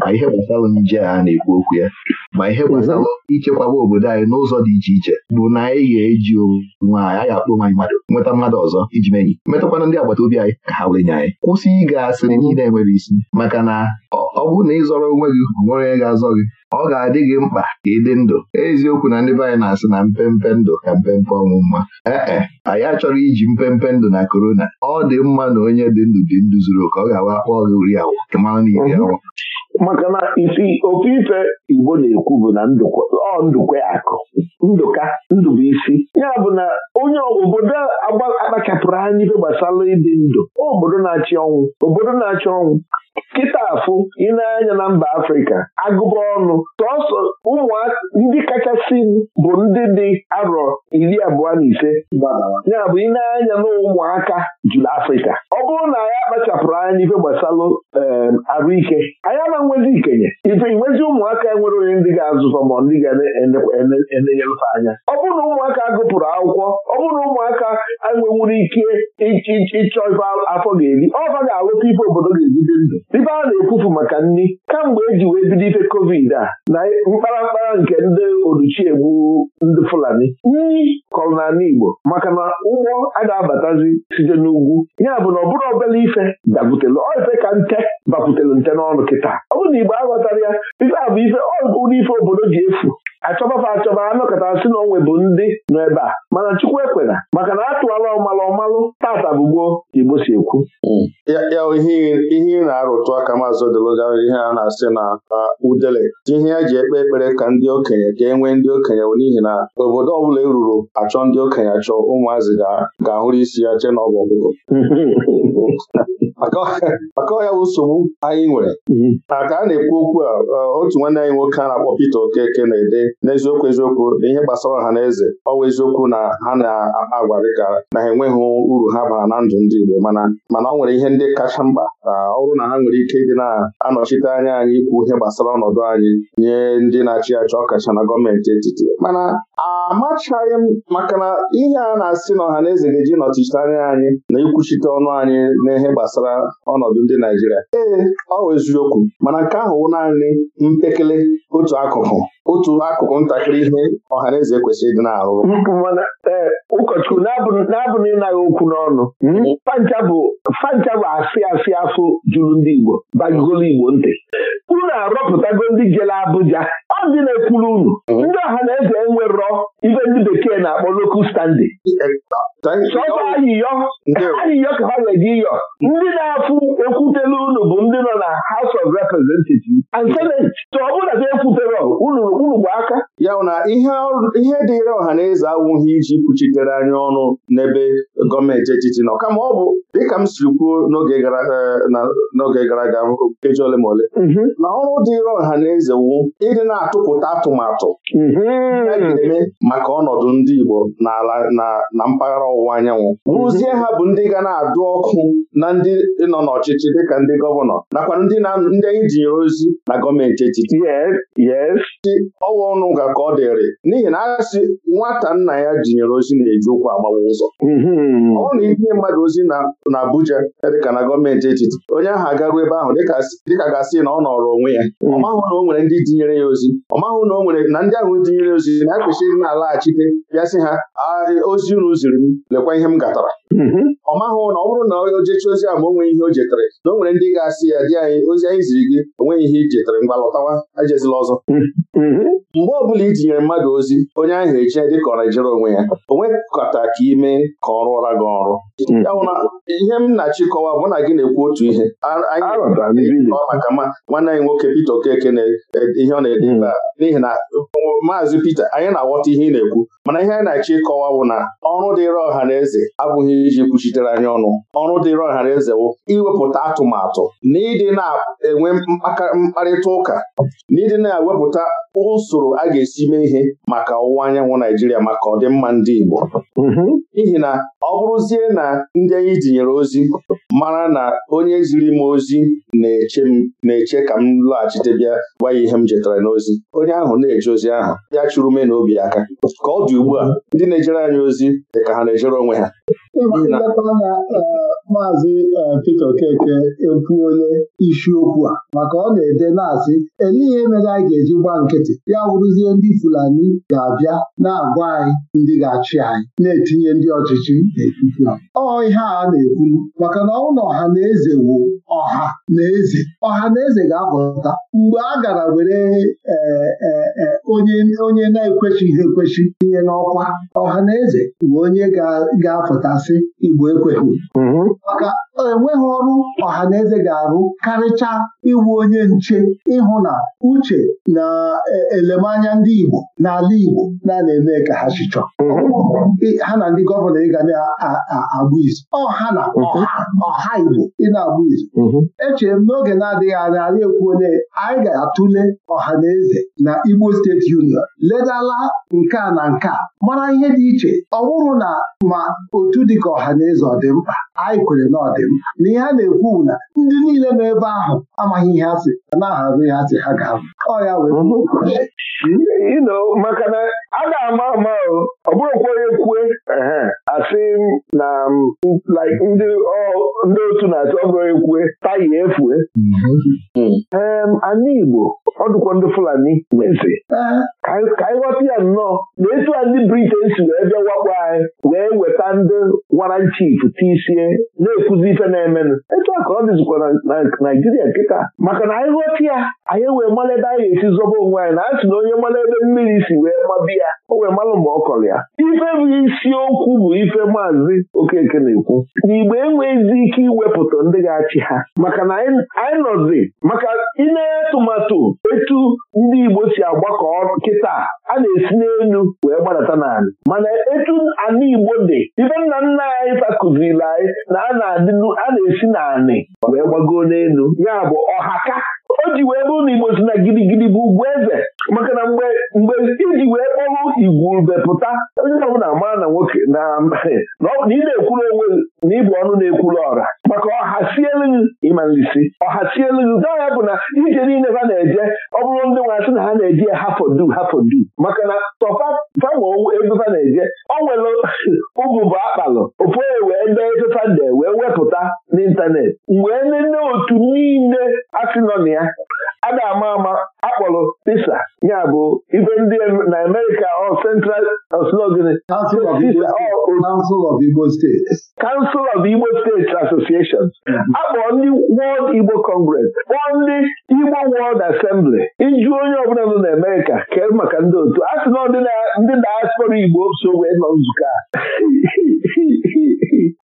ma ihe gbasara nje a na-ekwu okwu ya ma ihe gbasara ichekwaba obodo anyị n'ụzọ dị iche iche bụ na anyị ga-eji onwe anyị anyị akpọ nwanyị mmadụ nweta mmadụ ọzọ iji menyi metakwana ndị agbata obi anyị ka ha wenye anyị kwụsị ịga asịrị niile enwere isi maka na ọ bụrụ na ịzọrọ onwe gị nwere onye ga-azọ gị ọ ga-adị gị mkpa ka ịdị ndụ eziokwu na ndị be anyị na-asị na mpempe ndụ ka mpempe ọnwụ mma ee anyị achọrọ iji mpempe ndụ na korona ọ dị mma na onye dị ndụ dị ndụ zuru oke ọ ga-awa akpọ gị uri na iri maka na isi ofe ife Igbo na-ekwu bụ na ọ akụ ndụka ndụbụisi ya bụ na onye obodo akpachapụrụ anya ife gbasara ịdị ndụ obodo na-achị ọnwụ obodo na-achị ọnwụ kịta afụ ịna-anya na mba afrịka agụba ọnụ sọsọ ụmụaka ndị kachasị bụ ndị dị arọ iri abụọ na ise ya bụ ịna-anya na ụmụaka juru afrịka ọ bụrụ na anyị akpachapụrụ anya n'ife gbasalụ arụike anyị na nwezi ikenye ife nwezi ụmụaka e nwere onye ndị ga-azụfa ma ndị ga-enenyelụfe anya ọ bụrụ na ụmụaka gụpụrụ akwụkwọ ọ bụrụ na ụmụaka enwenwuru ike ịchọ ife afọ ga-eri ọ ga-alụta ife obodo ga-egide ndụ ebe a na-ekwufu maka nri kamgbe e ji wee bido ife covid a na mkparamkpara nke ndị oluchiegbu ndị Fulani nri kọrọ n'ala Igbo maka na ụgbọ a ga-abatazi site n'ugwu ya bụ na ọbụrụ obere ife dakwutere ife ka nte bakwutere nte n'ọnụ kịta ọ bụrụ na Igbo aghọtara ya ife a bụ ife ife obodo ji efu achọbafa achọba anọkọta si na onwe bụ ndị nọ ebe a mana Chukwu ekwena maka na atụala ọmalụ ọmalụ tata bụ gboo Igbo si okwu mm. ya ihe ị na-arụtụ aka maazị Odeluga ihe a na-asị na udele ihe ya e ji ekpe ekpere ka ndị okenye ka e nwee ndị okenye bụ n'ihi na obodo ọbụla eruru achọ ndị okenye achọ ụmụazị ga-ahụrụ isi ya che na ọ bụ ọgụgụ. maka ọhịa bụ nsogbu anyị nwere maka mm-hmm. a na-ekwu okwu a e, otu nwanne anyị nwoke a na-akpọ Peter Okeke na-ede n'eziokwu eziokwu na ihe gbasara ha na eze ọ bụ eziokwu na ha na-agwa dịka na ha enweghị uru ha bara na ndụ ndị Igbo mana mana ọ nwere ihe ndị kacha mkpa na ọ bụrụ na ha nwere ike ịdị na-anọchite anya anyị ikwu ihe gbasara ọnọdụ anyị nye ndị na-achị achị ọkacha na gọọmenti etiti mana amachaghị m maka na ihe a na-asị na ọha na eze ga-eji nọchite anya anyị na ikwuchite ọnụ anyị na ihe gbasara ọnọdụ ndị Naijiria ee ọ wụ eziokwu mana nke ahụ naanị mpekele otu akụkụ otu akụkụ ntakịrị ihe ọha na eze kwesịrị ịdị eh, ụkọchukwu na-abụ na ịnaghị okwu n'ọnụ mm-hmm. fancha bụ asị asị afọ juru ndị Igbo bagigolo Igbo ntị unu arọpụtago ndị jere Abụja ọ dị na-ekwuru unu mm-hmm. ndị ọha na eze enwerọ ibe ndị bekee na-akpọ local standing ayịyọ ka ha ga-eji yọ ndị na-afụ ekwutere unu bụ ndị nọ na House of Representatives and Senate so ọ bụla ekwutere unu bụ aka ya na ihe dịrị ọha na eze awụghị iji kwuchitere anyị ọnụ n'ebe gọọmenti etiti nọ kama ọ bụ dịka m siri kwuo n'oge gara e, aga nkeji ole ma ole mhm. na ọrụ dịrị ọha na eze wu ịdị na-atụpụta atụmatụ mhm. maka ọnọdụ ndị Igbo n'ala na mpaghara ọwụwa anyanwụ bụrụzie mhm. ha bụ ndị ga na-adụ ọkụ na ndị nọ n'ọchịchị dịka ndị gọvanọ nakwa ndị anyị jinyere ozi na gọọmenti etiti ọwa ọnụ ga ka ọ dịrị n'ihi na asị nwata nna ya jinyere ozi na-eji ụkwụ agbawa ụzọ mhm. ọ na ihe mmadụ ozi na Abuja dịka na gọọmenti etiti onye ahụ agago ebe ahụ dịka gasị na ọ nọrọ onwe ya ọ mhm. na o nwere ndị ya ozi ọ mahụ na o nwere na ndị ahụ tinyere ozi na-ekwesịghị na laghachite bịa sị ha ozi unu ziri m lekwa ihe m gatara Mhm. ọ mahụ na ọ bụrụ na o jechi ozi ahụ ma o ihe o jetere na o nwere ndị ga-asị ya dị anyị ozi anyị ziri gị o ihe i jetere mgba lọtawa ajezila ọzọ mhm. mgbe ọ bụla i tinyere mmadụ ozi onye ahụ eje dị ka ọ na-ejere onwe ya onwe nwekọta ka ime ka ọ rụọra gị ọrụ mhm. ya na ihe m na-achịkọwa bụ na gị na-ekwu otu ihe maka nwanne anyị nwoke Pita Okeke na e, ihe ọ na-ede n'ihi na maazị Pita anyị na-aghọta ihe ị na-ekwu mana ihe anyị na-achọ ịkọwa bụ na ọrụ dịịrị ọha na eze abụghị iji kwuchitere anyị ọnụ ọrụ dịrị ọhara ezewo iwepụta atụmatụ na ịdị na-enwe mkparịta ụka na ịdị na-ewepụta usoro a ga-esi mee ihe maka ọwụwa anyanwụ Naijiria maka ọdịmma ndị Igbo mm-hmm. n'ihi na ọ bụrụzie na ndị anyị dinyere ozi mara na onye ziri m ozi na-eche ka m lọghachite bịa gwa ya ihe m jetara n'ozi onye ahụ na-eje ozi ahụ ya chụrụ me na obi aka ka ọ dị ugbu a ndị na-ejere anyị ozi dị ka ha na-ejere onwe ha ileta anya eh, maazị eh, Pita Okeke ekwuole isiokwu a maka ọ na-ede na-asị eleihe mere anyị ga-eji gba nkịtị ya wụrụzie ndị Fulani ga-abịa na-agwa anyị ndị ga-achị anyị na-etinye ndị ọchịchị n'etiti ọ ihe a na-ekwu maka na na ọha na eze wu ọha na eze ọha na eze ga-apụta mgbe a gara were eh, onye na-ekwechighị ekwechi tinye n'ọkwa ọha na eze bụ onye ga-apụtasị asị Igbo ekweghị mm-hmm. maka enweghị ọrụ ọha na eze ga-arụ karịcha iwu onye nche ịhụ na uche na e, elemanya ndị Igbo n'ala Igbo na-eme ka ha chichọ mm-hmm. ha na ndị gọvanọ ị na-agbụ izu mm-hmm. ọha na ọha Igbo ị na-agbụ izu echere m n'oge na-adịghị anya anyị ekwuole anyị ga-atụle ọha na eze na Igbo steeti union ledala nke na nke mara ihe dị iche ọ bụrụ na ma otu dị ka ọha na eze ọdị mkpa anyị kwere na ọdị mkpa na ihe a na-ekwu na ndị niile nọ ebe ahụ amaghị ihe ha si a na-aharụ ihe ha si ha ga-abụ ọ ya wee mm-hmm. maka na a ga-ama ama ọ bụrụkwa onye kwue asị na um, ndị otu na-atụ ọ onye kwue taya efue mm-hmm. um, anyị Igbo ọ dịkwa ndị Fulani mezi ka anyị ghọta ya nnọọ na etu a ndị Briten si wee bịa wakpo anyị wee weta ndị wara chief tisie na-ekwuzi ife na-emenụ etu a ka ọ dịzikwa na Naijiria nkịta maka na anyị ghọta ya anyị wee mara ebe anyị ga-esi zọba onwe anyị na si na onye mara ebe mmiri si wee mabi ya o wee mara ma ọ kọrọ ya ife bụ isiokwu bụ ife maazị Okeke na-ekwu na igbe enweghịzi ike iwepụta ndị ga-achị ha maka na anyị nọzi maka ịna tụmatụ etu ndị Igbo si agbakọ ọrụ nkịta a na-esi n'elu wee gbadata n'ala mana etu ana Igbo dị ife nna nna anyị fakụziri anyị na a na-esi n'anị wee gbago n'elu ya bụ ọhaka o ji wee bụrụ na igbo si na gidigidi bụ ugwu eze maka na mgbe mgbe iji wee kpọrụ igwurube pụta onye ọbụla mara na nwoke na na ị na-ekwuru onwe na ịbụ ọnụ na-ekwuru ọra maka ọha si elughi ịmalisi ọha si elughi gaa bụ na ije niile ha na-eje ọ bụrụ ndị nwaasị na ha na-eji hafodu hafodu maka na tọfa fama ego ha na-eje o nwere ụgwụ bụ akpalụ ofu onye wee dee efefa pụta n'ịntanetị mgbe nne otu niile asị nọ na ama ama akpọrọ pisa ya bụ ibe ndị na Amerịka ọ Central ọslogịnị Council of Igbo States Council of Igbo States Association akpọrọ ndị World Igbo Congress kpọọ ndị Igbo World Assembly iju onye ọbụla nọ na amerika kee maka ndị otu a sị na ndị Igbo so wee nọ nzukọ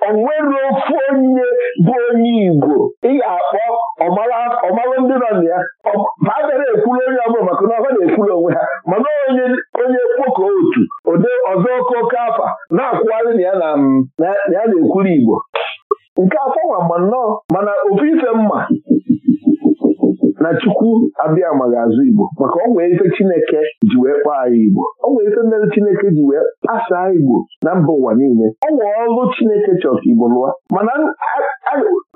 onwere e ofu onye bụ onye Igbo ị ga-akpọ ọmarụ ndị nọ na ya ha ekwuru onye bụla maka na ọha na-ekwuru onwe ha mana onye onye kpoko otu ode ọzọ oke oke afa na-akwụgharị na ya na-ekwuru Igbo nke afọ nwa ma nnọọ mana ofu ife mma na chukwu abịa amaghị azụ Igbo maka ọ nwere ife Chineke ji wee kpaa anyị Igbo ọ nwere ife mere Chineke ji wee kpasaa Igbo na mba ụwa niile ọ nwere ọrụ Chineke chọrọ ka Igbo lụọ mana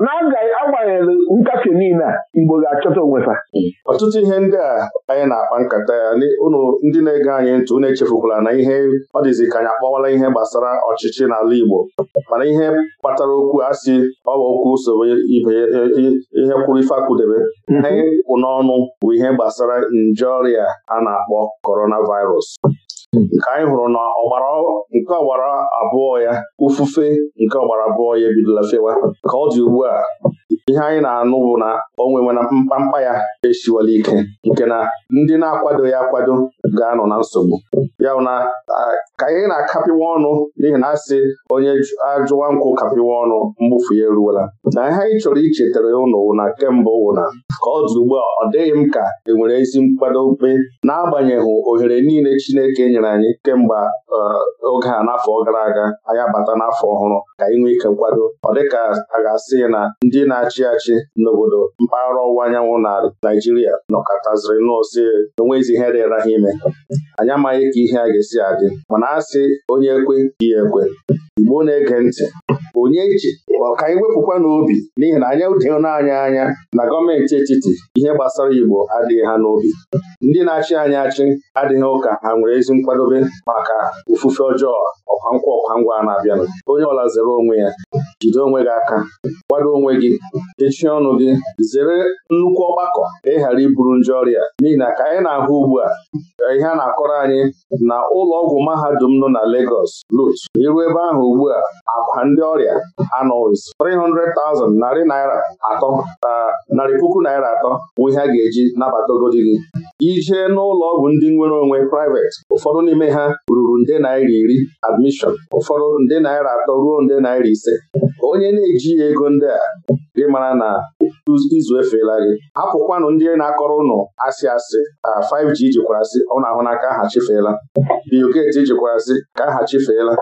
na-agaghị nkafe niile a Igbo ga-achọta onwe ọtụtụ ihe ndị a anyị na-akpa nkata ya unu ndị na-ege anyị ntị na echefukwala na ihe ọ dịzi ka anyị akpọwala ihe gbasara ọchịchị n'ala Igbo mana ihe kpatara okwu a si bụ okwu usoro ihe kwuru ife akwudebe mhm. ihe kwụ n'ọnụ bụ ihe gbasara nje ọrịa a na-akpọ coronavirus mhm. nke anyị hụrụ na ọgbara nke ọgbara abụọ ya ufufe nke ọgbara abụọ ya ebidola fewa ka ọ dị ugbu a ihe anyị na-anụ bụ na onwe nwewe na mkpamkpa ya esiwala ike nke na ndị na akwado ya akwado ga-anọ na nsogbu ya na ka anyị na-akapịwa ọnụ n'ihi na asị onye ajụwa nkwụ kapịwa ọnụ mgbufu ya eruola na ihe anyị chọrọ ichetara ụnụ na kemgbe na. ka ọ dị ugbu a ọ dịghị m ka e nwere ezi na n'agbanyeghị ohere niile Chineke nyere anyị kemgbe oge a n'afọ gara aga anyị abata n'afọ ọhụrụ ka anyị nwee ike nkwado ọ dịka a ga-asị na ndị na-achị achị n'obodo mpaghara ọwụwa anyanwụ na Naijiria nọkọtaziri n'ose enweghịzi ihe dịra ha ime anyị amaghị ka ihe a ga-esi adị mana asị onye ekwe ya ekwe Igbo na-ege ntị onye ji ka anyị wepụkwa n'obi n'ihi na anyị dịghị n'anya anya na gọọmenti etiti ihe gbasara Igbo adịghị ha n'obi ndị na-achị anyị achị adịghị ụka ha nwere ezi nkwadobe maka ofufe ọjọọ ọkwa nkwa ọkwa ngwa na-abịanụ onye ọla zere onwe ya jide onwe gị aka kwado onwe gị kechie ọnụ gị zere nnukwu ọgbakọ ịghara iburu nje ọrịa n'ihi na ka anyị na-ahụ ugbu a ihe a na-akọrọ anyị na ụlọ ọgwụ mahadum nọ na Legos, Lut iru ebe ahụ ugbu a akwa ndị ọrịa anọzi 300,000 narị naira atọ na narị puku naira atọ bụ ihe a ga-eji nabatagodi gị ijee n'ụlọ ọgwụ ndị nwere onwe private ụfọdụ n'ime ha ruru nde naira iri admishọn ụfọdụ nde naira atọ ruo nde naira ise onye na-ejighị ego ndị a mara na izu efeela gị apụkwanụ ndị na-akọrọ ụnụ asị asị 5G jikwara asị ọ na-ahụ n'aka aha chifeela bioket jikwara ka aha chefeela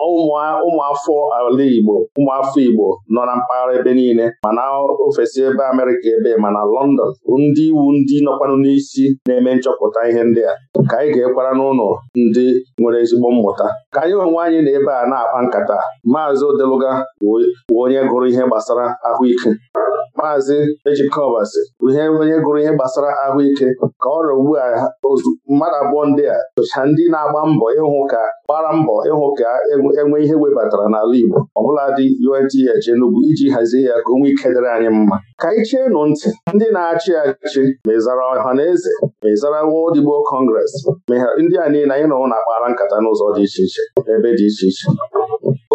ụmụafọ ala Igbo ụmụafọ Igbo nọ na mpaghara ebe niile mana ofesi ebe Amerịka ebe mana London ndị iwu ndị nọkwanụ n'isi na-eme nchọpụta ihe ndị a ka anyị ga-ekwara n'ụlọ ndị nwere ezigbo mmụta ka anyị onwe anyị na ebe a na-akpa nkata maazị Odeluga wụ onye gụrụ ihe gbasara ahụike maazị ejikọbasi ihe onye gụrụ ihe gbasara ahụike ka ọ rịa ugbu a mmadụ abụọ ndị a socha ndị na-agba mbọ ịhụ ka gbara mbọ ịhụ ka e enwe ihe webatara n'ala Igbo bụla dị UNTH enugwu iji hazie ya ka onwe ike dịrị anyị mma ka anyị nụ ntị ndị na-achị achị ma ịzara ọha na eze mezara wodigbo World ndị a niile anyị nọwụ na-akpara nkata n'ụzọ dị iche iche ebe dị iche iche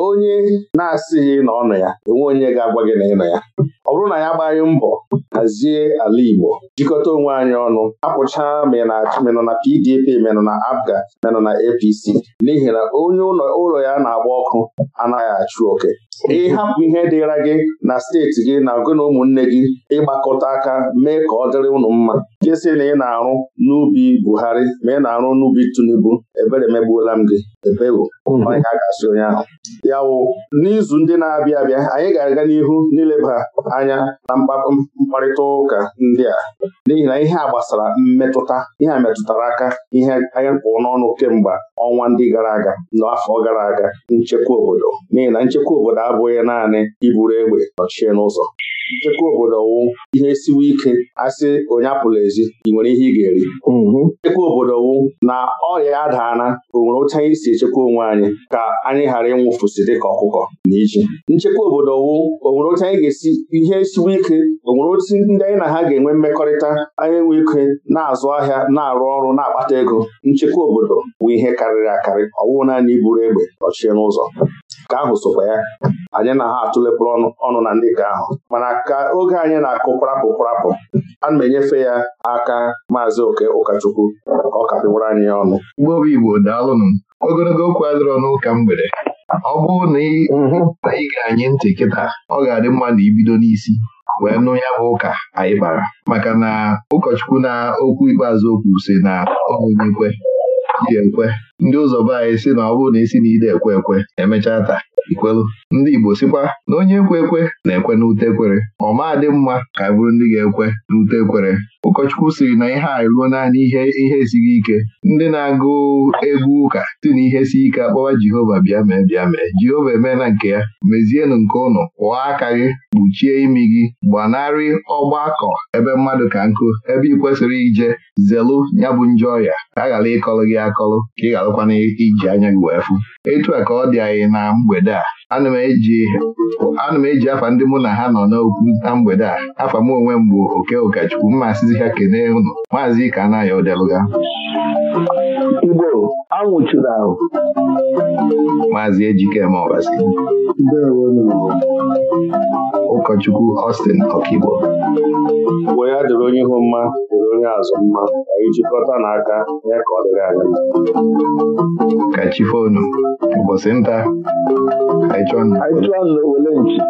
onye na-asịghị na ọ nọ ya enwe onye ga-agwa gị na ị nọ ya ọ bụrụ na ya agbaghị mbọ hazie ala Igbo jikọta onwe anyị ọnụ apụchaa menụ na PDP menụ na Abga menụ na APC n'ihi na onye ụlọ ya na-agba ọkụ anaghị achụ oke ịhapụ ihe dịra gị na steeti gị na gị na ụmụnne gị ịgbakọta aka mee ka ọ dịrị ụnụ mma kesị na ị na-arụ n'ubi Buhari ma ị na-arụ n'ubi Tinubu ebere megbuola m gị ebewo onye hmm. a ga-asị onye ahụ ya n'izu ndị na-abịa abịa anyị ga-aga n'ihu n'ileba anya na mkparịta mkparịta ụka ndị a n'ihi na ihe a gbasara mmetụta ihe a metụtara aka ihe anyị kwụrụ n'ọnụ kemgbe ọnwa ndị gara aga n'afọ gara aga nchekwa obodo n'ihi na nchekwa obodo abụghị naanị iburu egbe nọchie n'ụzọ nchekwa obodo wụ ihe siwe ike asị onye apụla ezi ị nwere ihe ị ga-eri mm-hmm. nchekwa obodo wụ na ọrịa adaana o nwere otu anyị si echekwa onwe anyị ka anyị ghara ịnwụfụsị dịka ọkụkọ na iji nchekwa obodo wụ onwere otu anyị ga-esi ihe siwe ike o nwere otu ndị anyị na ha ga-enwe mmekọrịta anyị nwe ike na-azụ ahịa na-arụ ọrụ na-akpata ego nchekwa obodo bụ ihe karịrị akarị ọwụ naanị iburu egbe nọchie n'ụzọ ka ahụ sokwa ya anyị na ha atụlepụrụ ọnụ na ndị nke ahụ mana ka oge anyị na-akụ prapụ prapụ a na enyefe ya aka maazị oke ụkọchukwu ọ kapịwara anyị ya ọnụ mgbe obi Igbo daalụnụ ogologo okwu adịrọ n'ụka mgbede ọ bụrụ na ị mhm. ga-anye ntị kịta ọ ga-adị mma na ibido n'isi wee nụ ya bụ ụka anyị bara maka na ụkọchukwu na okwu ikpeazụ okwu si na onye ekwe ya ekwe ndị ụzọ be anyị si na ọ bụrụ na isi na ide ekwe ekwe emechaa taa ikwelu ndị Igbo sikwa na onye ekwe ekwe na-ekwe n'ute ekwere ọ maa dị mma ka e bụrụ ndị ga-ekwe n'ute ekwere ụkọchukwu siri na ihe a ruo naanị ihe ihe esighị ike ndị na-agụ egwu ụka si na ihe si ike akpọwa Jehova bịa mee bịa mee Jehova emeela nke ya mezienụ nke ụnụ kwụọ aka gị kpuchie imi gị gbanarị ọgbakọ ebe mmadụ ka nkụ ebe ị kwesịrị ije zelu ya bụ njọ ọrịa ka ghara ịkọlụ gị akọlụ ka ị ghara arụkwana iji anya gị wee fụ etu a ka ọ dị anyị na mgbede a ana m eji afa ndị mụ na ha nọ n'okwu na mgbede a afa m onwe m bụ oke ụkọchukwu mma asịzi ha kenee ụnụ. maazị ike anaghị odelụga Igbo anwụchiri ahụ maazị Ejikeme Ọbasi ụkọchukwu Austin Ọkigbo wee ya dịrị onye ihu mma dịrị onye azụ mma anyị jikọta n'aka ya ka ọ dịrị anya. ka chi fonu ụbọchị nta Aichon wele nchi